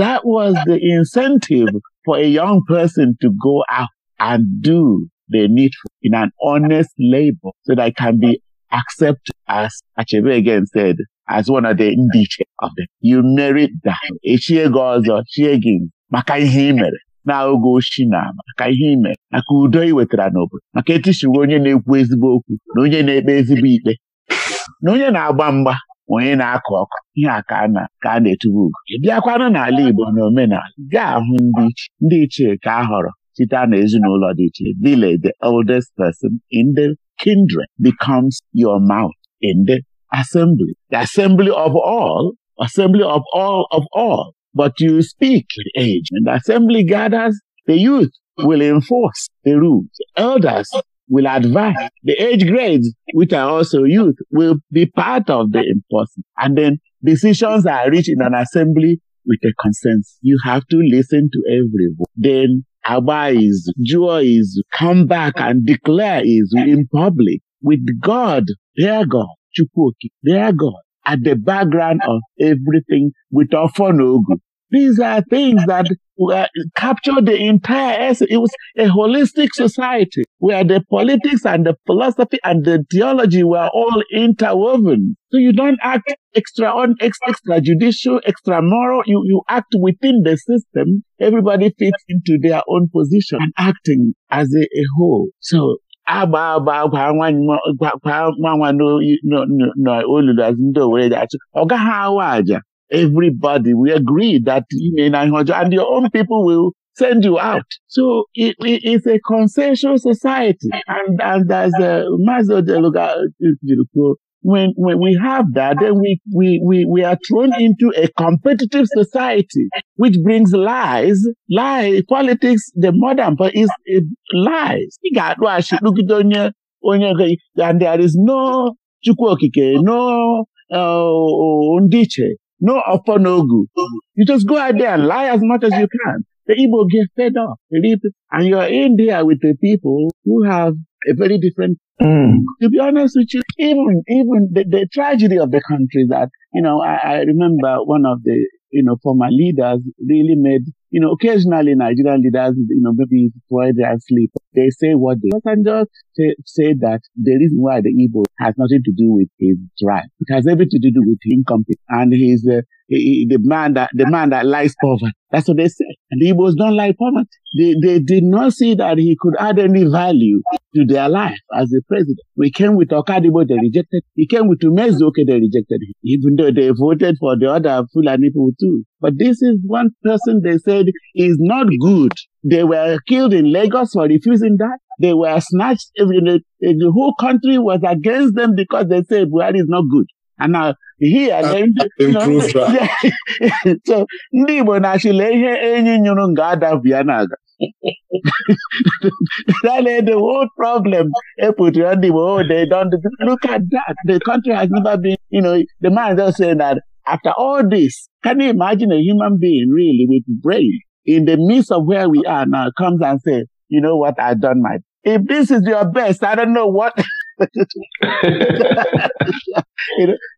that the incentive for a young person to go out and do the needful in an honest labor so that I can be accepted as Achebe again said, as one of the ndiche of them. You merit that. ọzọ, chie gị maka ihe ị mere na oge ochi na maka ihe ị mere maka udo ị wetara n'obodo maka etishiwe onye na-ekwu ezigbo okwu na onye na-ekpe ezigbo ikpe na onye na-agba mgba onye na-akụ ọkụ ihe a ka a na-etubu ugo bịakwanụ n'ala Igbo na omenala ga-ahụ ndị ichie ka a họrọ site n'ezinụlọ dị iche village the oldest person in the kindred becomes your mouth in the assembly the assembly of all assembly of all of all but you speak the age and the assembly gathers the youth will enforce the rules the elders will advance. The age grades, which are also youth, will be part of the enforcement. And then decisions are reached in an assembly with a consensus. You have to listen to everyone. Then agba is, Jua is, come back and declare is in public with God, their God, Chukwuki, their God, at the background of everything with Ofonogu. These are things that were, captured the entire essence. It was a holistic society where the politics and the philosophy and the theology were all interwoven. So you don't act extra on extra judicial, extra moral. You, you act within the system. Everybody fits into their own position and acting as a, a whole. So agba agba gwa nwa n'olulu azụ ndị Owerre ga-achụ ọ gaghị awa aja everybody. We agree that you may not and your own people will send you out. So it, it, it's a consensual society. And, and as uh, Mazo de Luga, when, when we have that, then we, we, we, we are thrown into a competitive society, which brings lies, lies, politics, the modern, but is it lies. And there is no okike no uh, ndiche no offer, You just go out there and lie as much as you can. The Igbo get fed up, and you And you're in there with the people who have a very different. Mm. To be honest with you, even even the, the tragedy of the country that you know, I, I remember one of the you know former leaders really made you know occasionally Nigerian leaders you know maybe while they are asleep they say what they and just say, say that the reason why the Igbo has nothing to do with his drive, It has everything to do with him incompetence and his, uh, he, the man that, the man that lies poverty. That's what they say. And the Igbos don't like poverty. They, they did not see that he could add any value to their life as the president. We came with Okadibo, they rejected. He came with Umezu, okay, they rejected him. Even though they voted for the other Fulani people too. But this is one person they said is not good They were killed in Lagos for refusing that. They were snatched. The, the whole country was against them because they said Buhari is not good. And now here then *laughs* *laughs* so ndị Igbo na-achịla ihe enyi nyụrụ nga adabịa na-aga *laughs* that is the whole problem eputere ndị oh they don't look at that the country has never been you know the man just saying that after all this can you imagine a human being really with brain in the midst of where we are now comes and say, you know what, I've done my, if this is your best, I don't know what. *laughs* you know,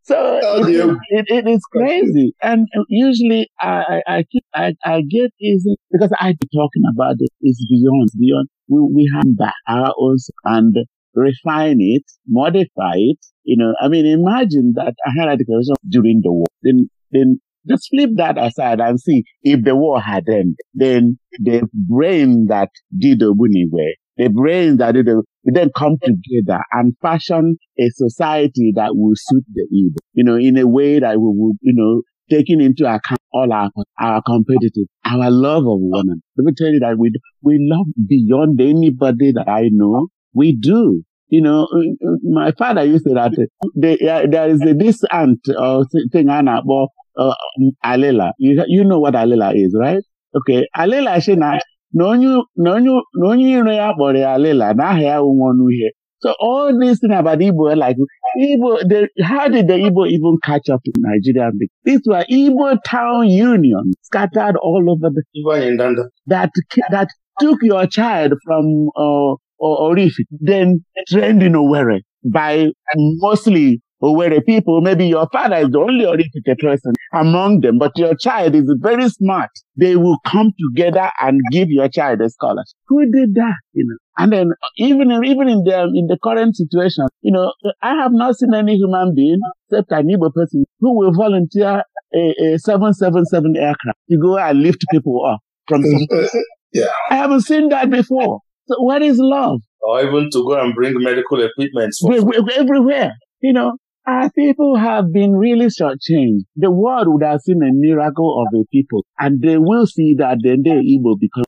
so oh, it, it, it is crazy. And usually I, I, keep, I, I get easy because I be talking about it. It's beyond, beyond. We, we have back our own and refine it, modify it. You know, I mean, imagine that I had a declaration during the war. Then, then Just flip that aside and see if the war had end then the brain that did Obuniwe, the brain that did the, then come together and fashion a society that will suit the Igbo, you know, in a way that we will, you know, taking into account all our, our competitive, our love of women. Let me tell you that we, we love beyond anybody that I know. We do. You know, uh, uh, my father used to that uh, they, uh, there is a, this aunt or uh, thing, Anna, well, uh, um, alila you, you know what alila is right okay alila si na na onye iro ya kpọrọ ya alila na aha ya nwọnụ ihe so all this thing about Igbo like Igbo they, how did the Igbo even catch up to Nigeria? This were Igbo town union scattered all over the Igbo that that took your child from uh, Orif, then trained in Owerri by mostly Owerri people, maybe your father is the only Orifite person among them, but your child is very smart. They will come together and give your child a scholarship. Who did that? You know. And then even even in the in the current situation, you know, I have not seen any human being except an Igbo person who will volunteer a, a aircraft to go and lift people up from. Mm-hmm. yeah, I haven't seen that before. So what is love? Or even to go and bring medical equipment for everywhere. You know, Our people have been really shortchanged. The world would have seen a miracle of a people, and they will see that then they're Igbo because.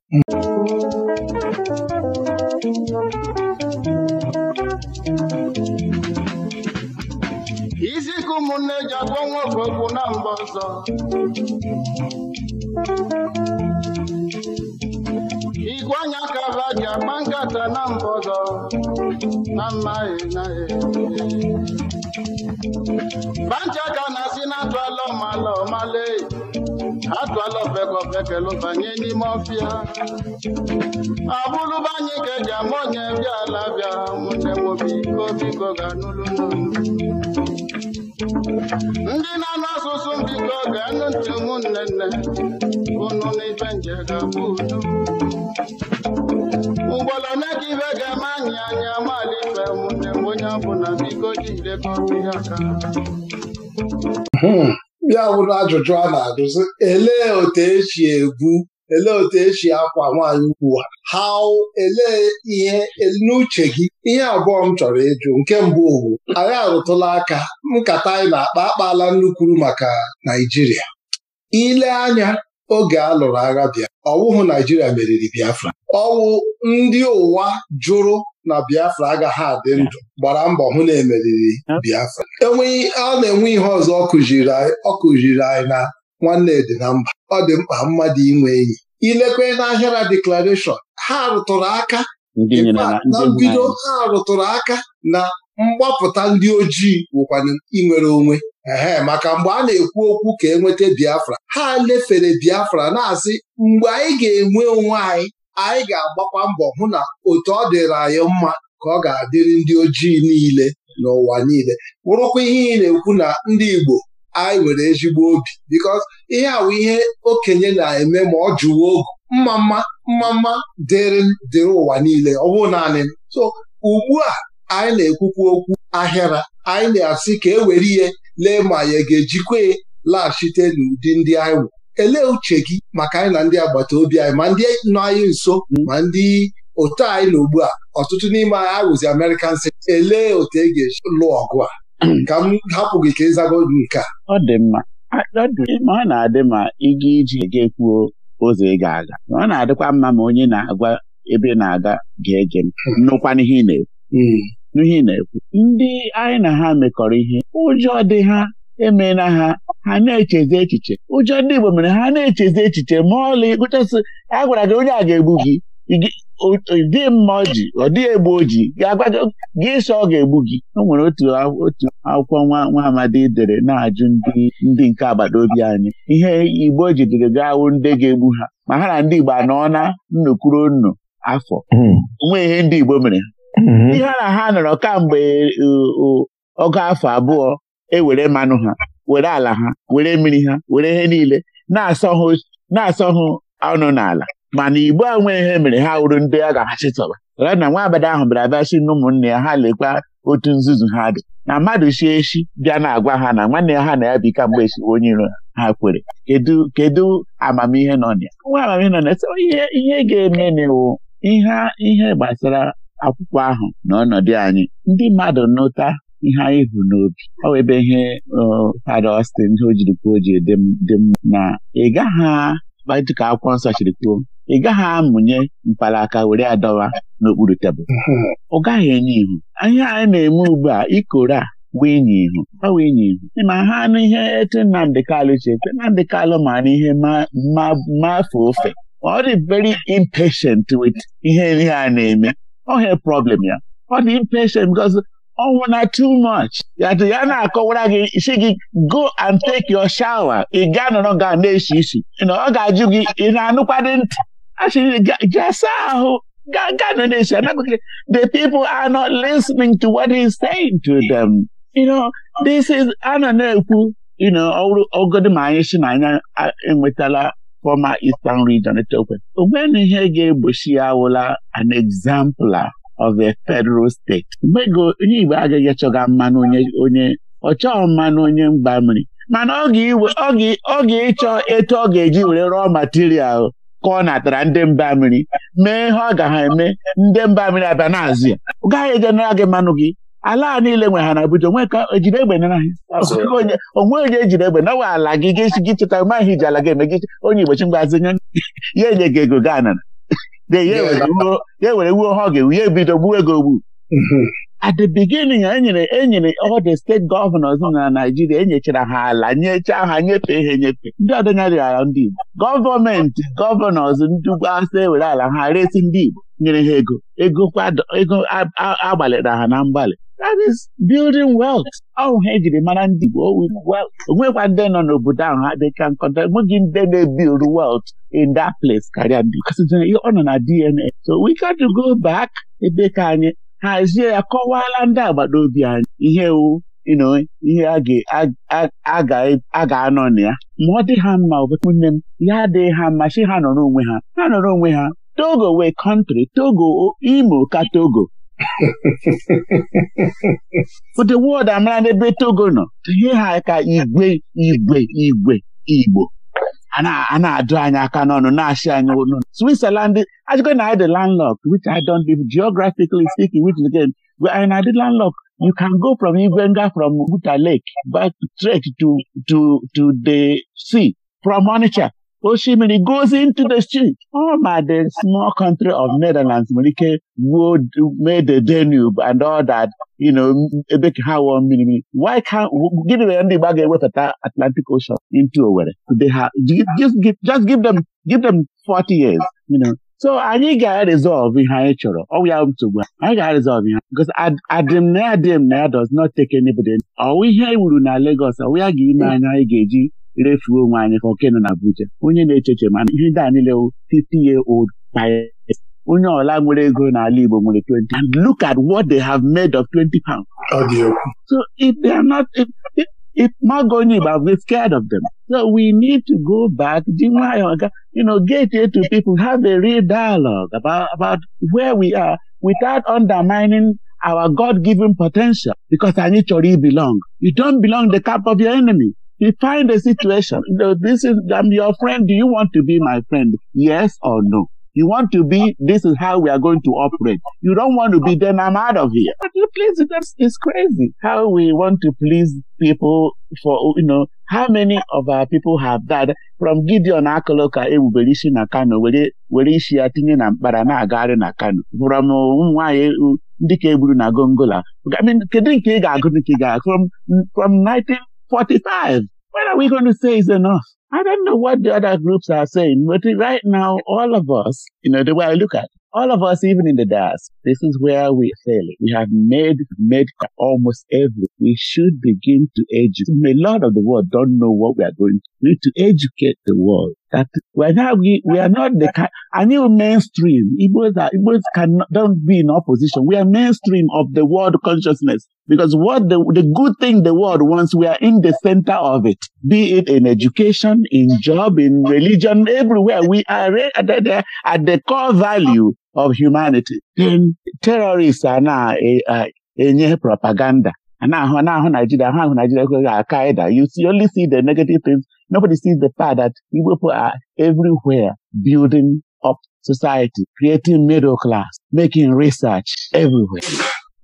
Iziku ụmụnne ji agwọ nwa okwu na mgbe ọzọ. Igwe anya kaba ji agba nkata na mgbe ọzọ na mma na bancha ka na asi na atụala ọmala ọmale atụala ofeke ofeke lụbanye n'ime ọfịa ọ bụrụbanyị ka eji ama onye bịa ala bịa nwunye biko biko ga-anụlụ ndị na-anụ asụsụ mbiko ga-anụ ntị ụmụnne nne unu n'ife nje ga-abụ udo na ka ibe ga-eme anyị anya mali ife mụ onye abụ hmm. na ajụjụ a na-ajụzi elee otu esi egwu elee otu esi akwa nwaanyị ukwu ha elee ihe n'uche gị ihe abụọ m chọrọ ịjụ nke mbụ owu anyị arụtụla aka nkata anyị na-akpa akpala nnukwuru maka Naijiria ile anya oge a lụrụ agha bịa ọwụhụ Naijiria meriri Biafra ọwụ ndị ụwa jụrụ na Biafra agaghị adị ndụ gbara mbọ hụ na emeriri Biafra enweghị a na-enwe ihe ọzọ ọ kụziri anyị na nwanne dị na mba ọ dị mkpa mmadụ inwe enyi ilekwe n'ahịara deklarashọn ha rụtụrụ aka na mbido ha rụtụrụ aka na mgbapụta ndị ojii wụkwana inwere onwe ehe maka mgbe a na-ekwu okwu ka e nweta Biafra ha lefere Biafra na-asị mgbe anyị ga-enwe onwe anyị anyị ga-agbakwa mbọ hụ na otu ọ dịrị anyị mma ka ọ ga-adịrị ndị ojii niile n'ụwa niile bụrụkwa ihe ị na-ekwu na ndị Igbo anyị nwere ezigbo obi bikos ihe awụ ihe okenye na-eme ma ọ jụwa ogu mma mma mma mma dịrị dịrị ụwa niile ọ bụrụ naanị so ugbu a anyị na-ekwukwa okwu ahịara anyị na-asị ka e were ihe lee ma ya ga-ejikwa laghachite n'ụdị ndị anyị nwere elee uche gị maka anyị na ndị agbata obi anyị ma ndị nọ anyị nso ma ndị otu anyị na ugbu a ọtụtụ n'ime anyị arụzi American si elee otu e ga-esi lụọ ọgụ a ka m hapụ gị ka ịzago nke a ọ dị mma ma ọ na-adị ma ịga iji ga-ekwuo ụzọ ị ga-aga ma ọ na-adịkwa mma ma onye na-agwa ebe na-aga ga-ege m nnụkwa ị na-ekwu hmm. n'ihe ị na-ekwu ndị anyị na ha mekọrọ ihe ụjọ dị ha emena ha ha na-echezi echiche ụjọ ndị Igbo mere ha na-echezi echiche ma ọlị gụchasị a gwara gị onye a ga-egbu gị dị mma ji ọ dịghị egbu oji ga-agwa gị sọ ọ ga-egbu gị o nwere otu otu akwụkwọ nwa nwa amadi dere na-ajụ ndị nke agbata obi anyị ihe Igbo jidere ga-awụ ndị ga-egbu ha ma ha na ndị Igbo anọ na nnukwu nnu afọ hmm. onwe ihe ndị Igbo mere hmm. ihe ha na ha nọrọ kamgbe ọgụ afọ abụọ ewere mmanụ ha were ala ha were mmiri ha were ihe niile na-asọ hụ ọnụ n'ala mana igbo a nwee ihe mere ha wuru ndị a ga-achịtọba ya na nwa abada ahụ bịara bịa si na ya ha lekwa otu nzuzu ha dị na mmadụ sie echi bịa na-agwa ha na nwanne ya ha na ya bi ike mgbe esi onye iro ha kwere kedu amamihe nọ na ya nwa amamihe nọ na ya ihe ihe ga-eme n'iwu ihe ihe gbasara akwụkwọ ahụ na ọnọdụ anyị ndị mmadụ nụta ihe anyị hụrụ n'obi ọ wụ ebe ihe fada Austin ihe o jiri kwuo ji dị mma na ị gaghị dịka akwụkwọ nsọ chiri kwuo ị gaghị amụnye mkpalaka were adọwa n'okpuru tebụl ọ gaghị enye ihu ihe anyị na-eme ugbu a ikoro a winye ihu ọ winye ihu ma ha anụ ihe etu Nnamdị Kalụ che Nnamdị Kalụ ma na ihe mafe ofe ọ dị very impatient with ihe ihe a na-eme ọ ha problem ya ọ dị impatient because ọnwụ oh, na too much ya na-akọwara gị si gị go and take your shower ị gaa nọrọ ga na-esi isi ọ ga-ajụ gị ị na-anụkwadị ntị asị gaa saa ahụ gaa na-esi anaghị the people are not listening to what he's saying to them you know this is a nọ na-ekwu you know ọrụ ogodi ma anyị si na anya enwetala former Eastern region etokwe onwe na ihe ga-egbochi ya awụla an exemplar. of a federal state. mgbe onye Igbo agaghị achọga mmanụ onye ọ chọọ mmanụ onye mgba mmiri mana ọ ga-ịchọ etu ọ ga-eji were rụọ material ka ọ natara ndị mba mmiri mee ihe ọ ga ha eme ndị mba mmiri abịa n'azụ ya ọ ejenara gị mmanụ gị ala a niile nwe ha na Abuja onwe ka ejiri egbe nara ha onwe onye ejiri egbe nawa ala gị gị chịta maghị ji ala gị eme gị onye Igbo chi mgbazinye ya enye gị ego gaa ya ewere wuo ha ga-ewu ya ebido gbuo ego ogbu at the beginning enyere enyere all the steeti gọvanọs na naijiria enyechara ha ala nyechaa ha nyefee ha enyefe ndị ọdịnala ndị Igbo gọọmenti gọvanọs ndị ugbo ewere ala ha resi ndị Igbo nyere ha ego ego ego agbalịra ha na mgbalị that is building wealth ọhụ ha ejiri mara ndị Igbo onwekwa ndị nọ n'obodo ahụ ha dịka nkọta enweghị ndị na-ebuild wealth in that place karịa ndị ọ nọ na DNA so we got to go back ebe ka anyị hazie ya kọwaala ndị agbata obi anyị ihe wu ihe a ga-anọ na ya ma ọ dị ha mma nne m ya adịghị ha mma si ha nọrọ onwe ha ha nọrọ onwe ha Togo wee kọntrị Togo Imo ka Togo ụdị *laughs* wọd amara n'ebe Togo nọ ihe ha ka igwe igwe igwe Igbo a na-ajụ anyị aka n'ọnụ na-achị anyị ọnụ Switzerland ajụgo na anyị landlock which I don live geographically speaking which again anyị na-adị landlock you can go from Ivenga from Guta Lake back straight to to to the sea from Onitsha osimiri goes into the street ọ my the small country of Netherlands nwere ike wuo mee the Danube and all that you know ebe ha wụọ mmiri mmiri why can't gịnị mere ndị Igbo ga-ewepụta Atlantic Ocean into Owerri ha just give just give them give them 40 years you know so anyị ga-resolve ihe anyị chọrọ ọwụ ya nsogbu anyị ga-resolve ihe because adịm na adịm na ya does not take anybody ọwụ ihe e wuru na Lagos ọwụ ya ga ime anya anyị ga-eji refuo onwe anyị ka oke na buche onye na-echeche mana ihe ndị a niile 50 year old pirates onye ọla nwere ego n'ala Igbo nwere 20 and look at what they have made of 20 pounds. So if they are not if, if, if Magoni we scared of them. So we need to go back, you know, get here to people, have a real dialogue about, about where we are without undermining our God-given potential because anyị chọrọ to belong. You don belong the camp of your enemy. You find a situation. This is, I'm your friend. Do you want to be my friend? Yes or no? You want to be, this is how we are going to operate. You don't want to be, then I'm out of here. But please, that's, it's crazy how we want to please people for, you know, how many of our people have died from Gideon Akoloka ewubere isi na Kano were were isi ya tinye na mkpara na-agagharị na Kano from ụmụnwaanyị uh, uh, ndị ka egburu na Gongola. I mean, kedu nke ị ga-agụ nke ị ga from from 19 45. What are we going to say is enough? I don't know what the other groups are saying, but right now, all of us, you know, the way I look at it, all of us, even in the DAS, this is where we fail. We have made, made almost every. We should begin to educate. A lot of the world don't know what we are going to do to educate the world that we are not, the kind, new mainstream. Igbos are, can be in opposition. We are mainstream of the world consciousness because what the, the good thing the world wants, we are in the center of it, be it in education, in job, in religion, everywhere. We are at the, at the core value of humanity. Then terrorists are now a, eh, eh, propaganda. And now, ahụ Nigeria, now Nigeria, Al Qaeda. You only see the negative things Nobody sees the fact that Igbo people are everywhere building up society, creating middle class, making research everywhere.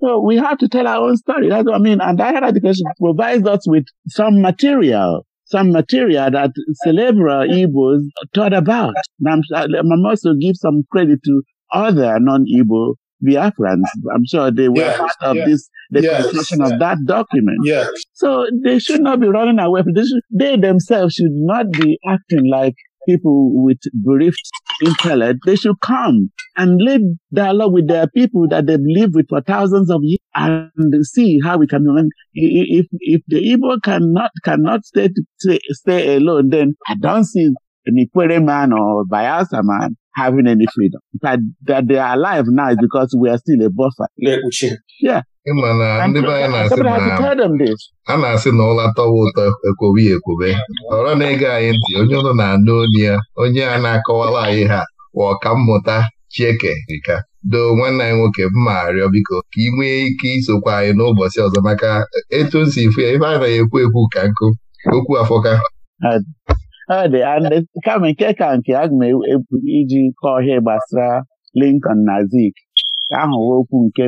So we have to tell our own story. That's what I mean. And higher education provides us with some material, some material that celebral Igbos thought about. And I'm, I'm also give some credit to other non-Igbo Biafra. I'm sure they were yes, part of yes, this, the yes, construction of that document. Yes. So they should not be running away from this. They themselves should not be acting like people with bereft intellect. They should come and lead dialogue with their people that they've lived with for thousands of years and see how we can. If if the Igbo cannot cannot stay stay, stay alone, then I don't see Nikwere man or Bayelsa man having any freedom. That that they are alive now is because we are still a buffer. Ịma na ndị be anyị na-asị na ụla tọwa ụtọ ekwobi ekwobe ọrọ na-ege anyị ntị onye ụlọ na-anụ onye ya onye a na-akọwara anyị ha ka mmụta Chieke Rika doo nwanne anyị nwoke mma arịọ biko ka ị nwee ike isokwa anyị n'ụbọchị ọzọ maka etu o si fụ ya ife a na-ekwu ekwu ka nkụ okwu afọka kama nke ka nke a ga m ebu iji kọọ ihe gbasara Lincoln na Zik ahụ okwu nke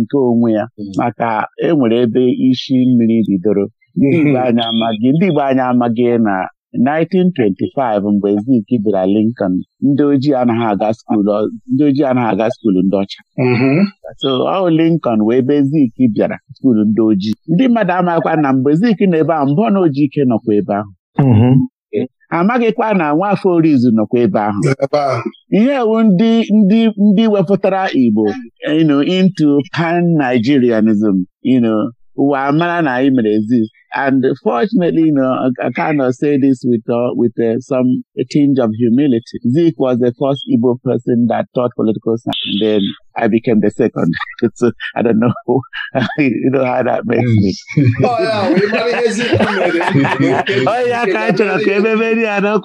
nke onwe ya maka enwere ebe isi mmiri bidoro ndị Igbo mhm. anyị amaghị ndị anyị amaghị na 1925 mgbe Zik bịara Lincoln ndị ojii anaghị aga skuulu ndị ojii anaghị aga ndị ọcha mhm. so ọ Lincoln wee ebe Zik bịara skuulu ndị ojii ndị mmadụ amaghịkwa na mgbe Zik na ebe ahụ mbụ na ojii ike nọkwa ebe ahụ mhm. amaghịkwa na nwaafọ orizu nọkwa ebe ahụ ihe ewu ndị ndị ndị wepụtara Igbo into pan Nigerianism you know ụwa mara na anyị mere ezi. And fortunately, you know, I, I kind of say this with uh, with uh, some a tinge of humility. Zeke was the first Igbo person that taught political science, and then I became the second. so *laughs* uh, I don't know, *laughs* you know how that makes me. *laughs* oh yeah, we Oh yeah,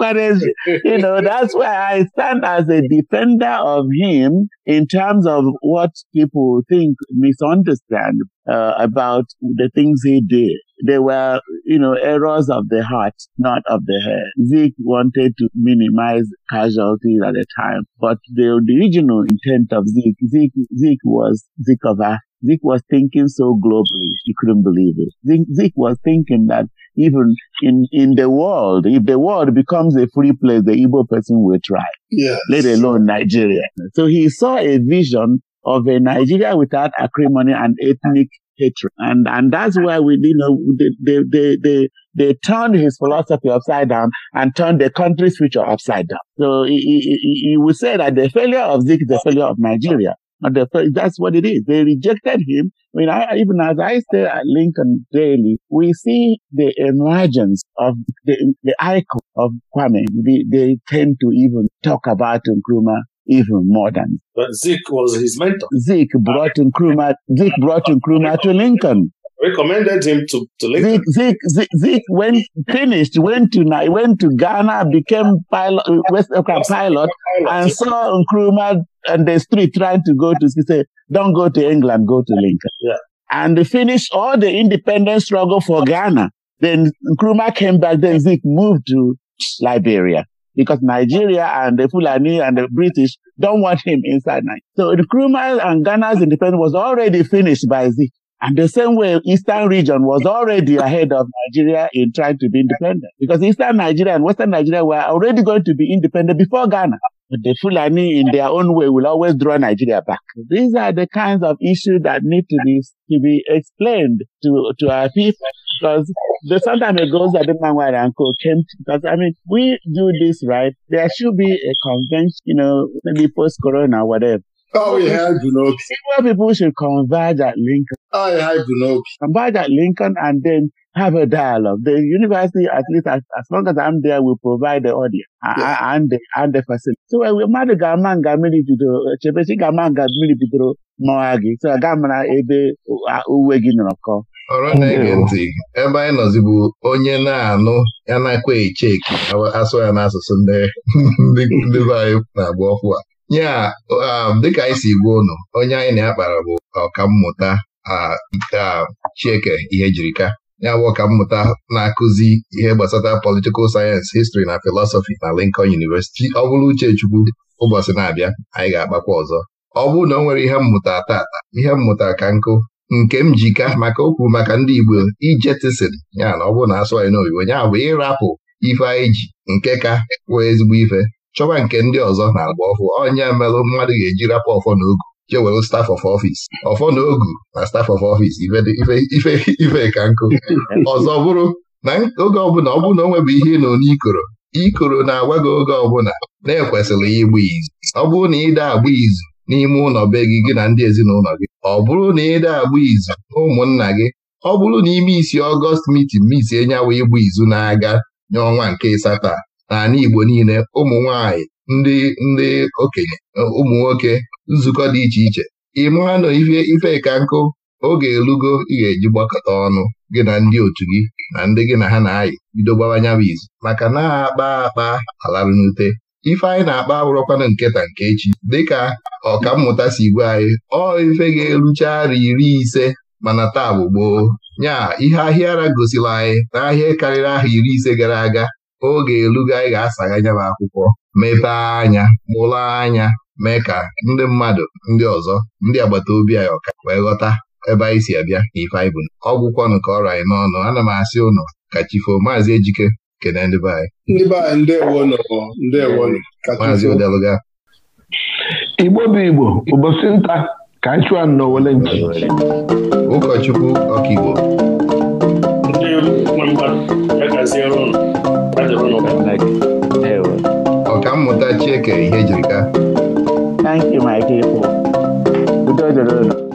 you know that's why I stand as a defender of him in terms of what people think misunderstand uh, about the things he did. they were, you know, errors of the heart, not of the head. Zeke wanted to minimize casualties at the time, but the original intent of Zeke, Zeke, Zeke was Zeke of Zeke was thinking so globally, he couldn't believe it. Zeke, Zeke was thinking that even in, in the world, if the world becomes a free place, the Igbo person will try, yes. let alone Nigeria. So he saw a vision of a Nigeria without acrimony and ethnic hatred. And, and that's why we, you know, they, they, they, they, turned his philosophy upside down and turned the country's future upside down. So he, he, he would say that the failure of Zik is the failure of Nigeria. And the, that's what it is. They rejected him. I mean, I, even as I stay at Lincoln daily, we see the emergence of the, the icon of Kwame. They, they tend to even talk about Nkrumah even more than. But Zeke was his mentor. Zeke brought Nkrumah, Zeke brought Nkrumah to Lincoln. Recommended him to, to Lincoln. Zeke, Zeke, Zeke went, finished, went to went to Ghana, became pilot, West African pilot, and saw Nkrumah on the street trying to go to, he said, don't go to England, go to Lincoln. Yeah. And finish all the independence struggle for Ghana. Then Nkrumah came back, then Zeke moved to Liberia. because Nigeria and the Fulani and the British don't want him inside Nigeria. So Nkrumah and Ghana's independence was already finished by Z, And the same way, Eastern region was already ahead of Nigeria in trying to be independent because Eastern Nigeria and Western Nigeria were already going to be independent before Ghana. the Fulani, in their own way, will always draw Nigeria back. These are the kinds of issues that need to be to be explained to to our people. Because the sometime it goes that the uncle came to, because I mean we do this right. There should be a convention, you know, maybe post corona, or whatever. Oh, we had Bunobi. Senior people should converge at Lincoln. Oh, I had Bunobi. Converge at Lincoln and then have a dialogue. The university, at least as, as long as I'm there, will provide the audience yeah. and, the, and the facility. So eh, we mmadụ ga-ama nga mmiri bidoro, ga-ama nga mmiri bidoro mmawa So na ebe uwe gị nọrọ kọ. Ọrụ na-ege ntị, ebe anyị nọzibu onye na-anụ ya na-akwa eche asụ ya n'asụsụ na-agba ọfụ ya um, dịka anyị si gwa ụnụ onye anyị na-akpara bụ ọkammụta Chieke ihe jirika ya bụ ọkammụta na-akụzi ihe gbasara politikal sayensị histri na filosofi na Lincoln University ọ bụrụ Uchechukwu ụbọchị na-abịa anyị ga-akpakwa ọzọ ọ bụrụ na ọ nwere ihe mmụta tata ihe mmụta ka nkụ nke m jika maka okwu maka ndị Igbo ijetisin ya na ọ bụrụ na asụ anyị n'oyibo ya bụ ịrapụ ife anyị ji nke ka kwuo ezigbo ife chọba nke ndị ọzọ na-agba ọfụ onye merụ mmadụ ga-eji rapụ ọfọ na ogu staf of office ọfọ na na staf of office ife ka nkụ ọzọ bụrụ na oge ọbụla ọ bụrụ na o nwebụ ihe nọ n'ikoro ikoro na-agwa gị oge ọbụla na-ekwesịrị ya ịgba izu ọ bụrụ na ịda agba izu n'ime ụlọ be gị gị na ndị ezinụlọ gị ọ bụrụ na ịda agba izu ụmụnna gị ọ bụrụ na ime isi ọgọst mitin misi enye ịgba izu na-aga n'ọnwa nke ịsatọ n'ala Igbo niile ụmụ nwanyị ndị ndị okenye ụmụ nwoke nzukọ dị iche iche ị mara na ife ifeka nkụ oge elugo ị ga-eji gbakọta ọnụ gị na ndị otu gị na ndị gị na ha na-ayị bido gbawa izu maka na akpa akpa alarụ n'ute ife anyị na-akpa abụrụkwana nketa nke echi dịka mmụta si gwa anyị ọ ife ga-erucha ara iri ise mana taa bụ gboo nya ihe ahịa ara gosila anyị n'ahịa karịrị aha iri ise gara aga oge elugo anyị ga-asagha anya akwụkwọ mepee anya mụlụ anya mee ka ndị mmadụ ndị ọzọ ndị agbata obi anyị ọka wee ghọta ebe anyị si abịa na ife anyị bụ ọgwụkwọnụ ka ọrịa anyị n'ọnụ ana m asị ụnụ ka chifo maazị Ejike kene ndị be anyị maazị Odeluga Igbo bụ Igbo ụbọchị nta ka anyị chụọ n'owele nchi ụkọchukwu ọkaigbo ọkammụta Chieke ihe e jirika udo dịrị unu